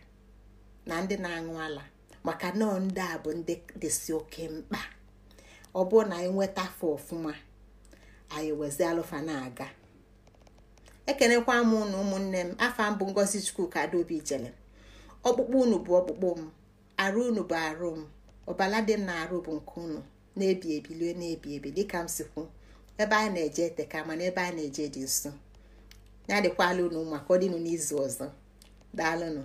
na ndị na-aṅụ ala maka nọọ ndị a bụ ndị dịsị oke mkpa ọ bụrụ na anyị nweta afọ ọfụma anyị wezi alụfa na-aga ekenekwa m unu ụmụnne m afa mbụ ngozi chukwu ka adaobi jele ọkpụkpụ unu bụ ọkpụkpụ m arụ unu bụ arụ m ọbala dị m na-arụ bụ nke unu na-ebi ebilie na-ebi ebi dịka m sikwu ebe anyị na-eje teka mana ebe anyị na-eje dị nso ya dịkwala unu maka ọdịnụ n'izu ọzọ daalụnụ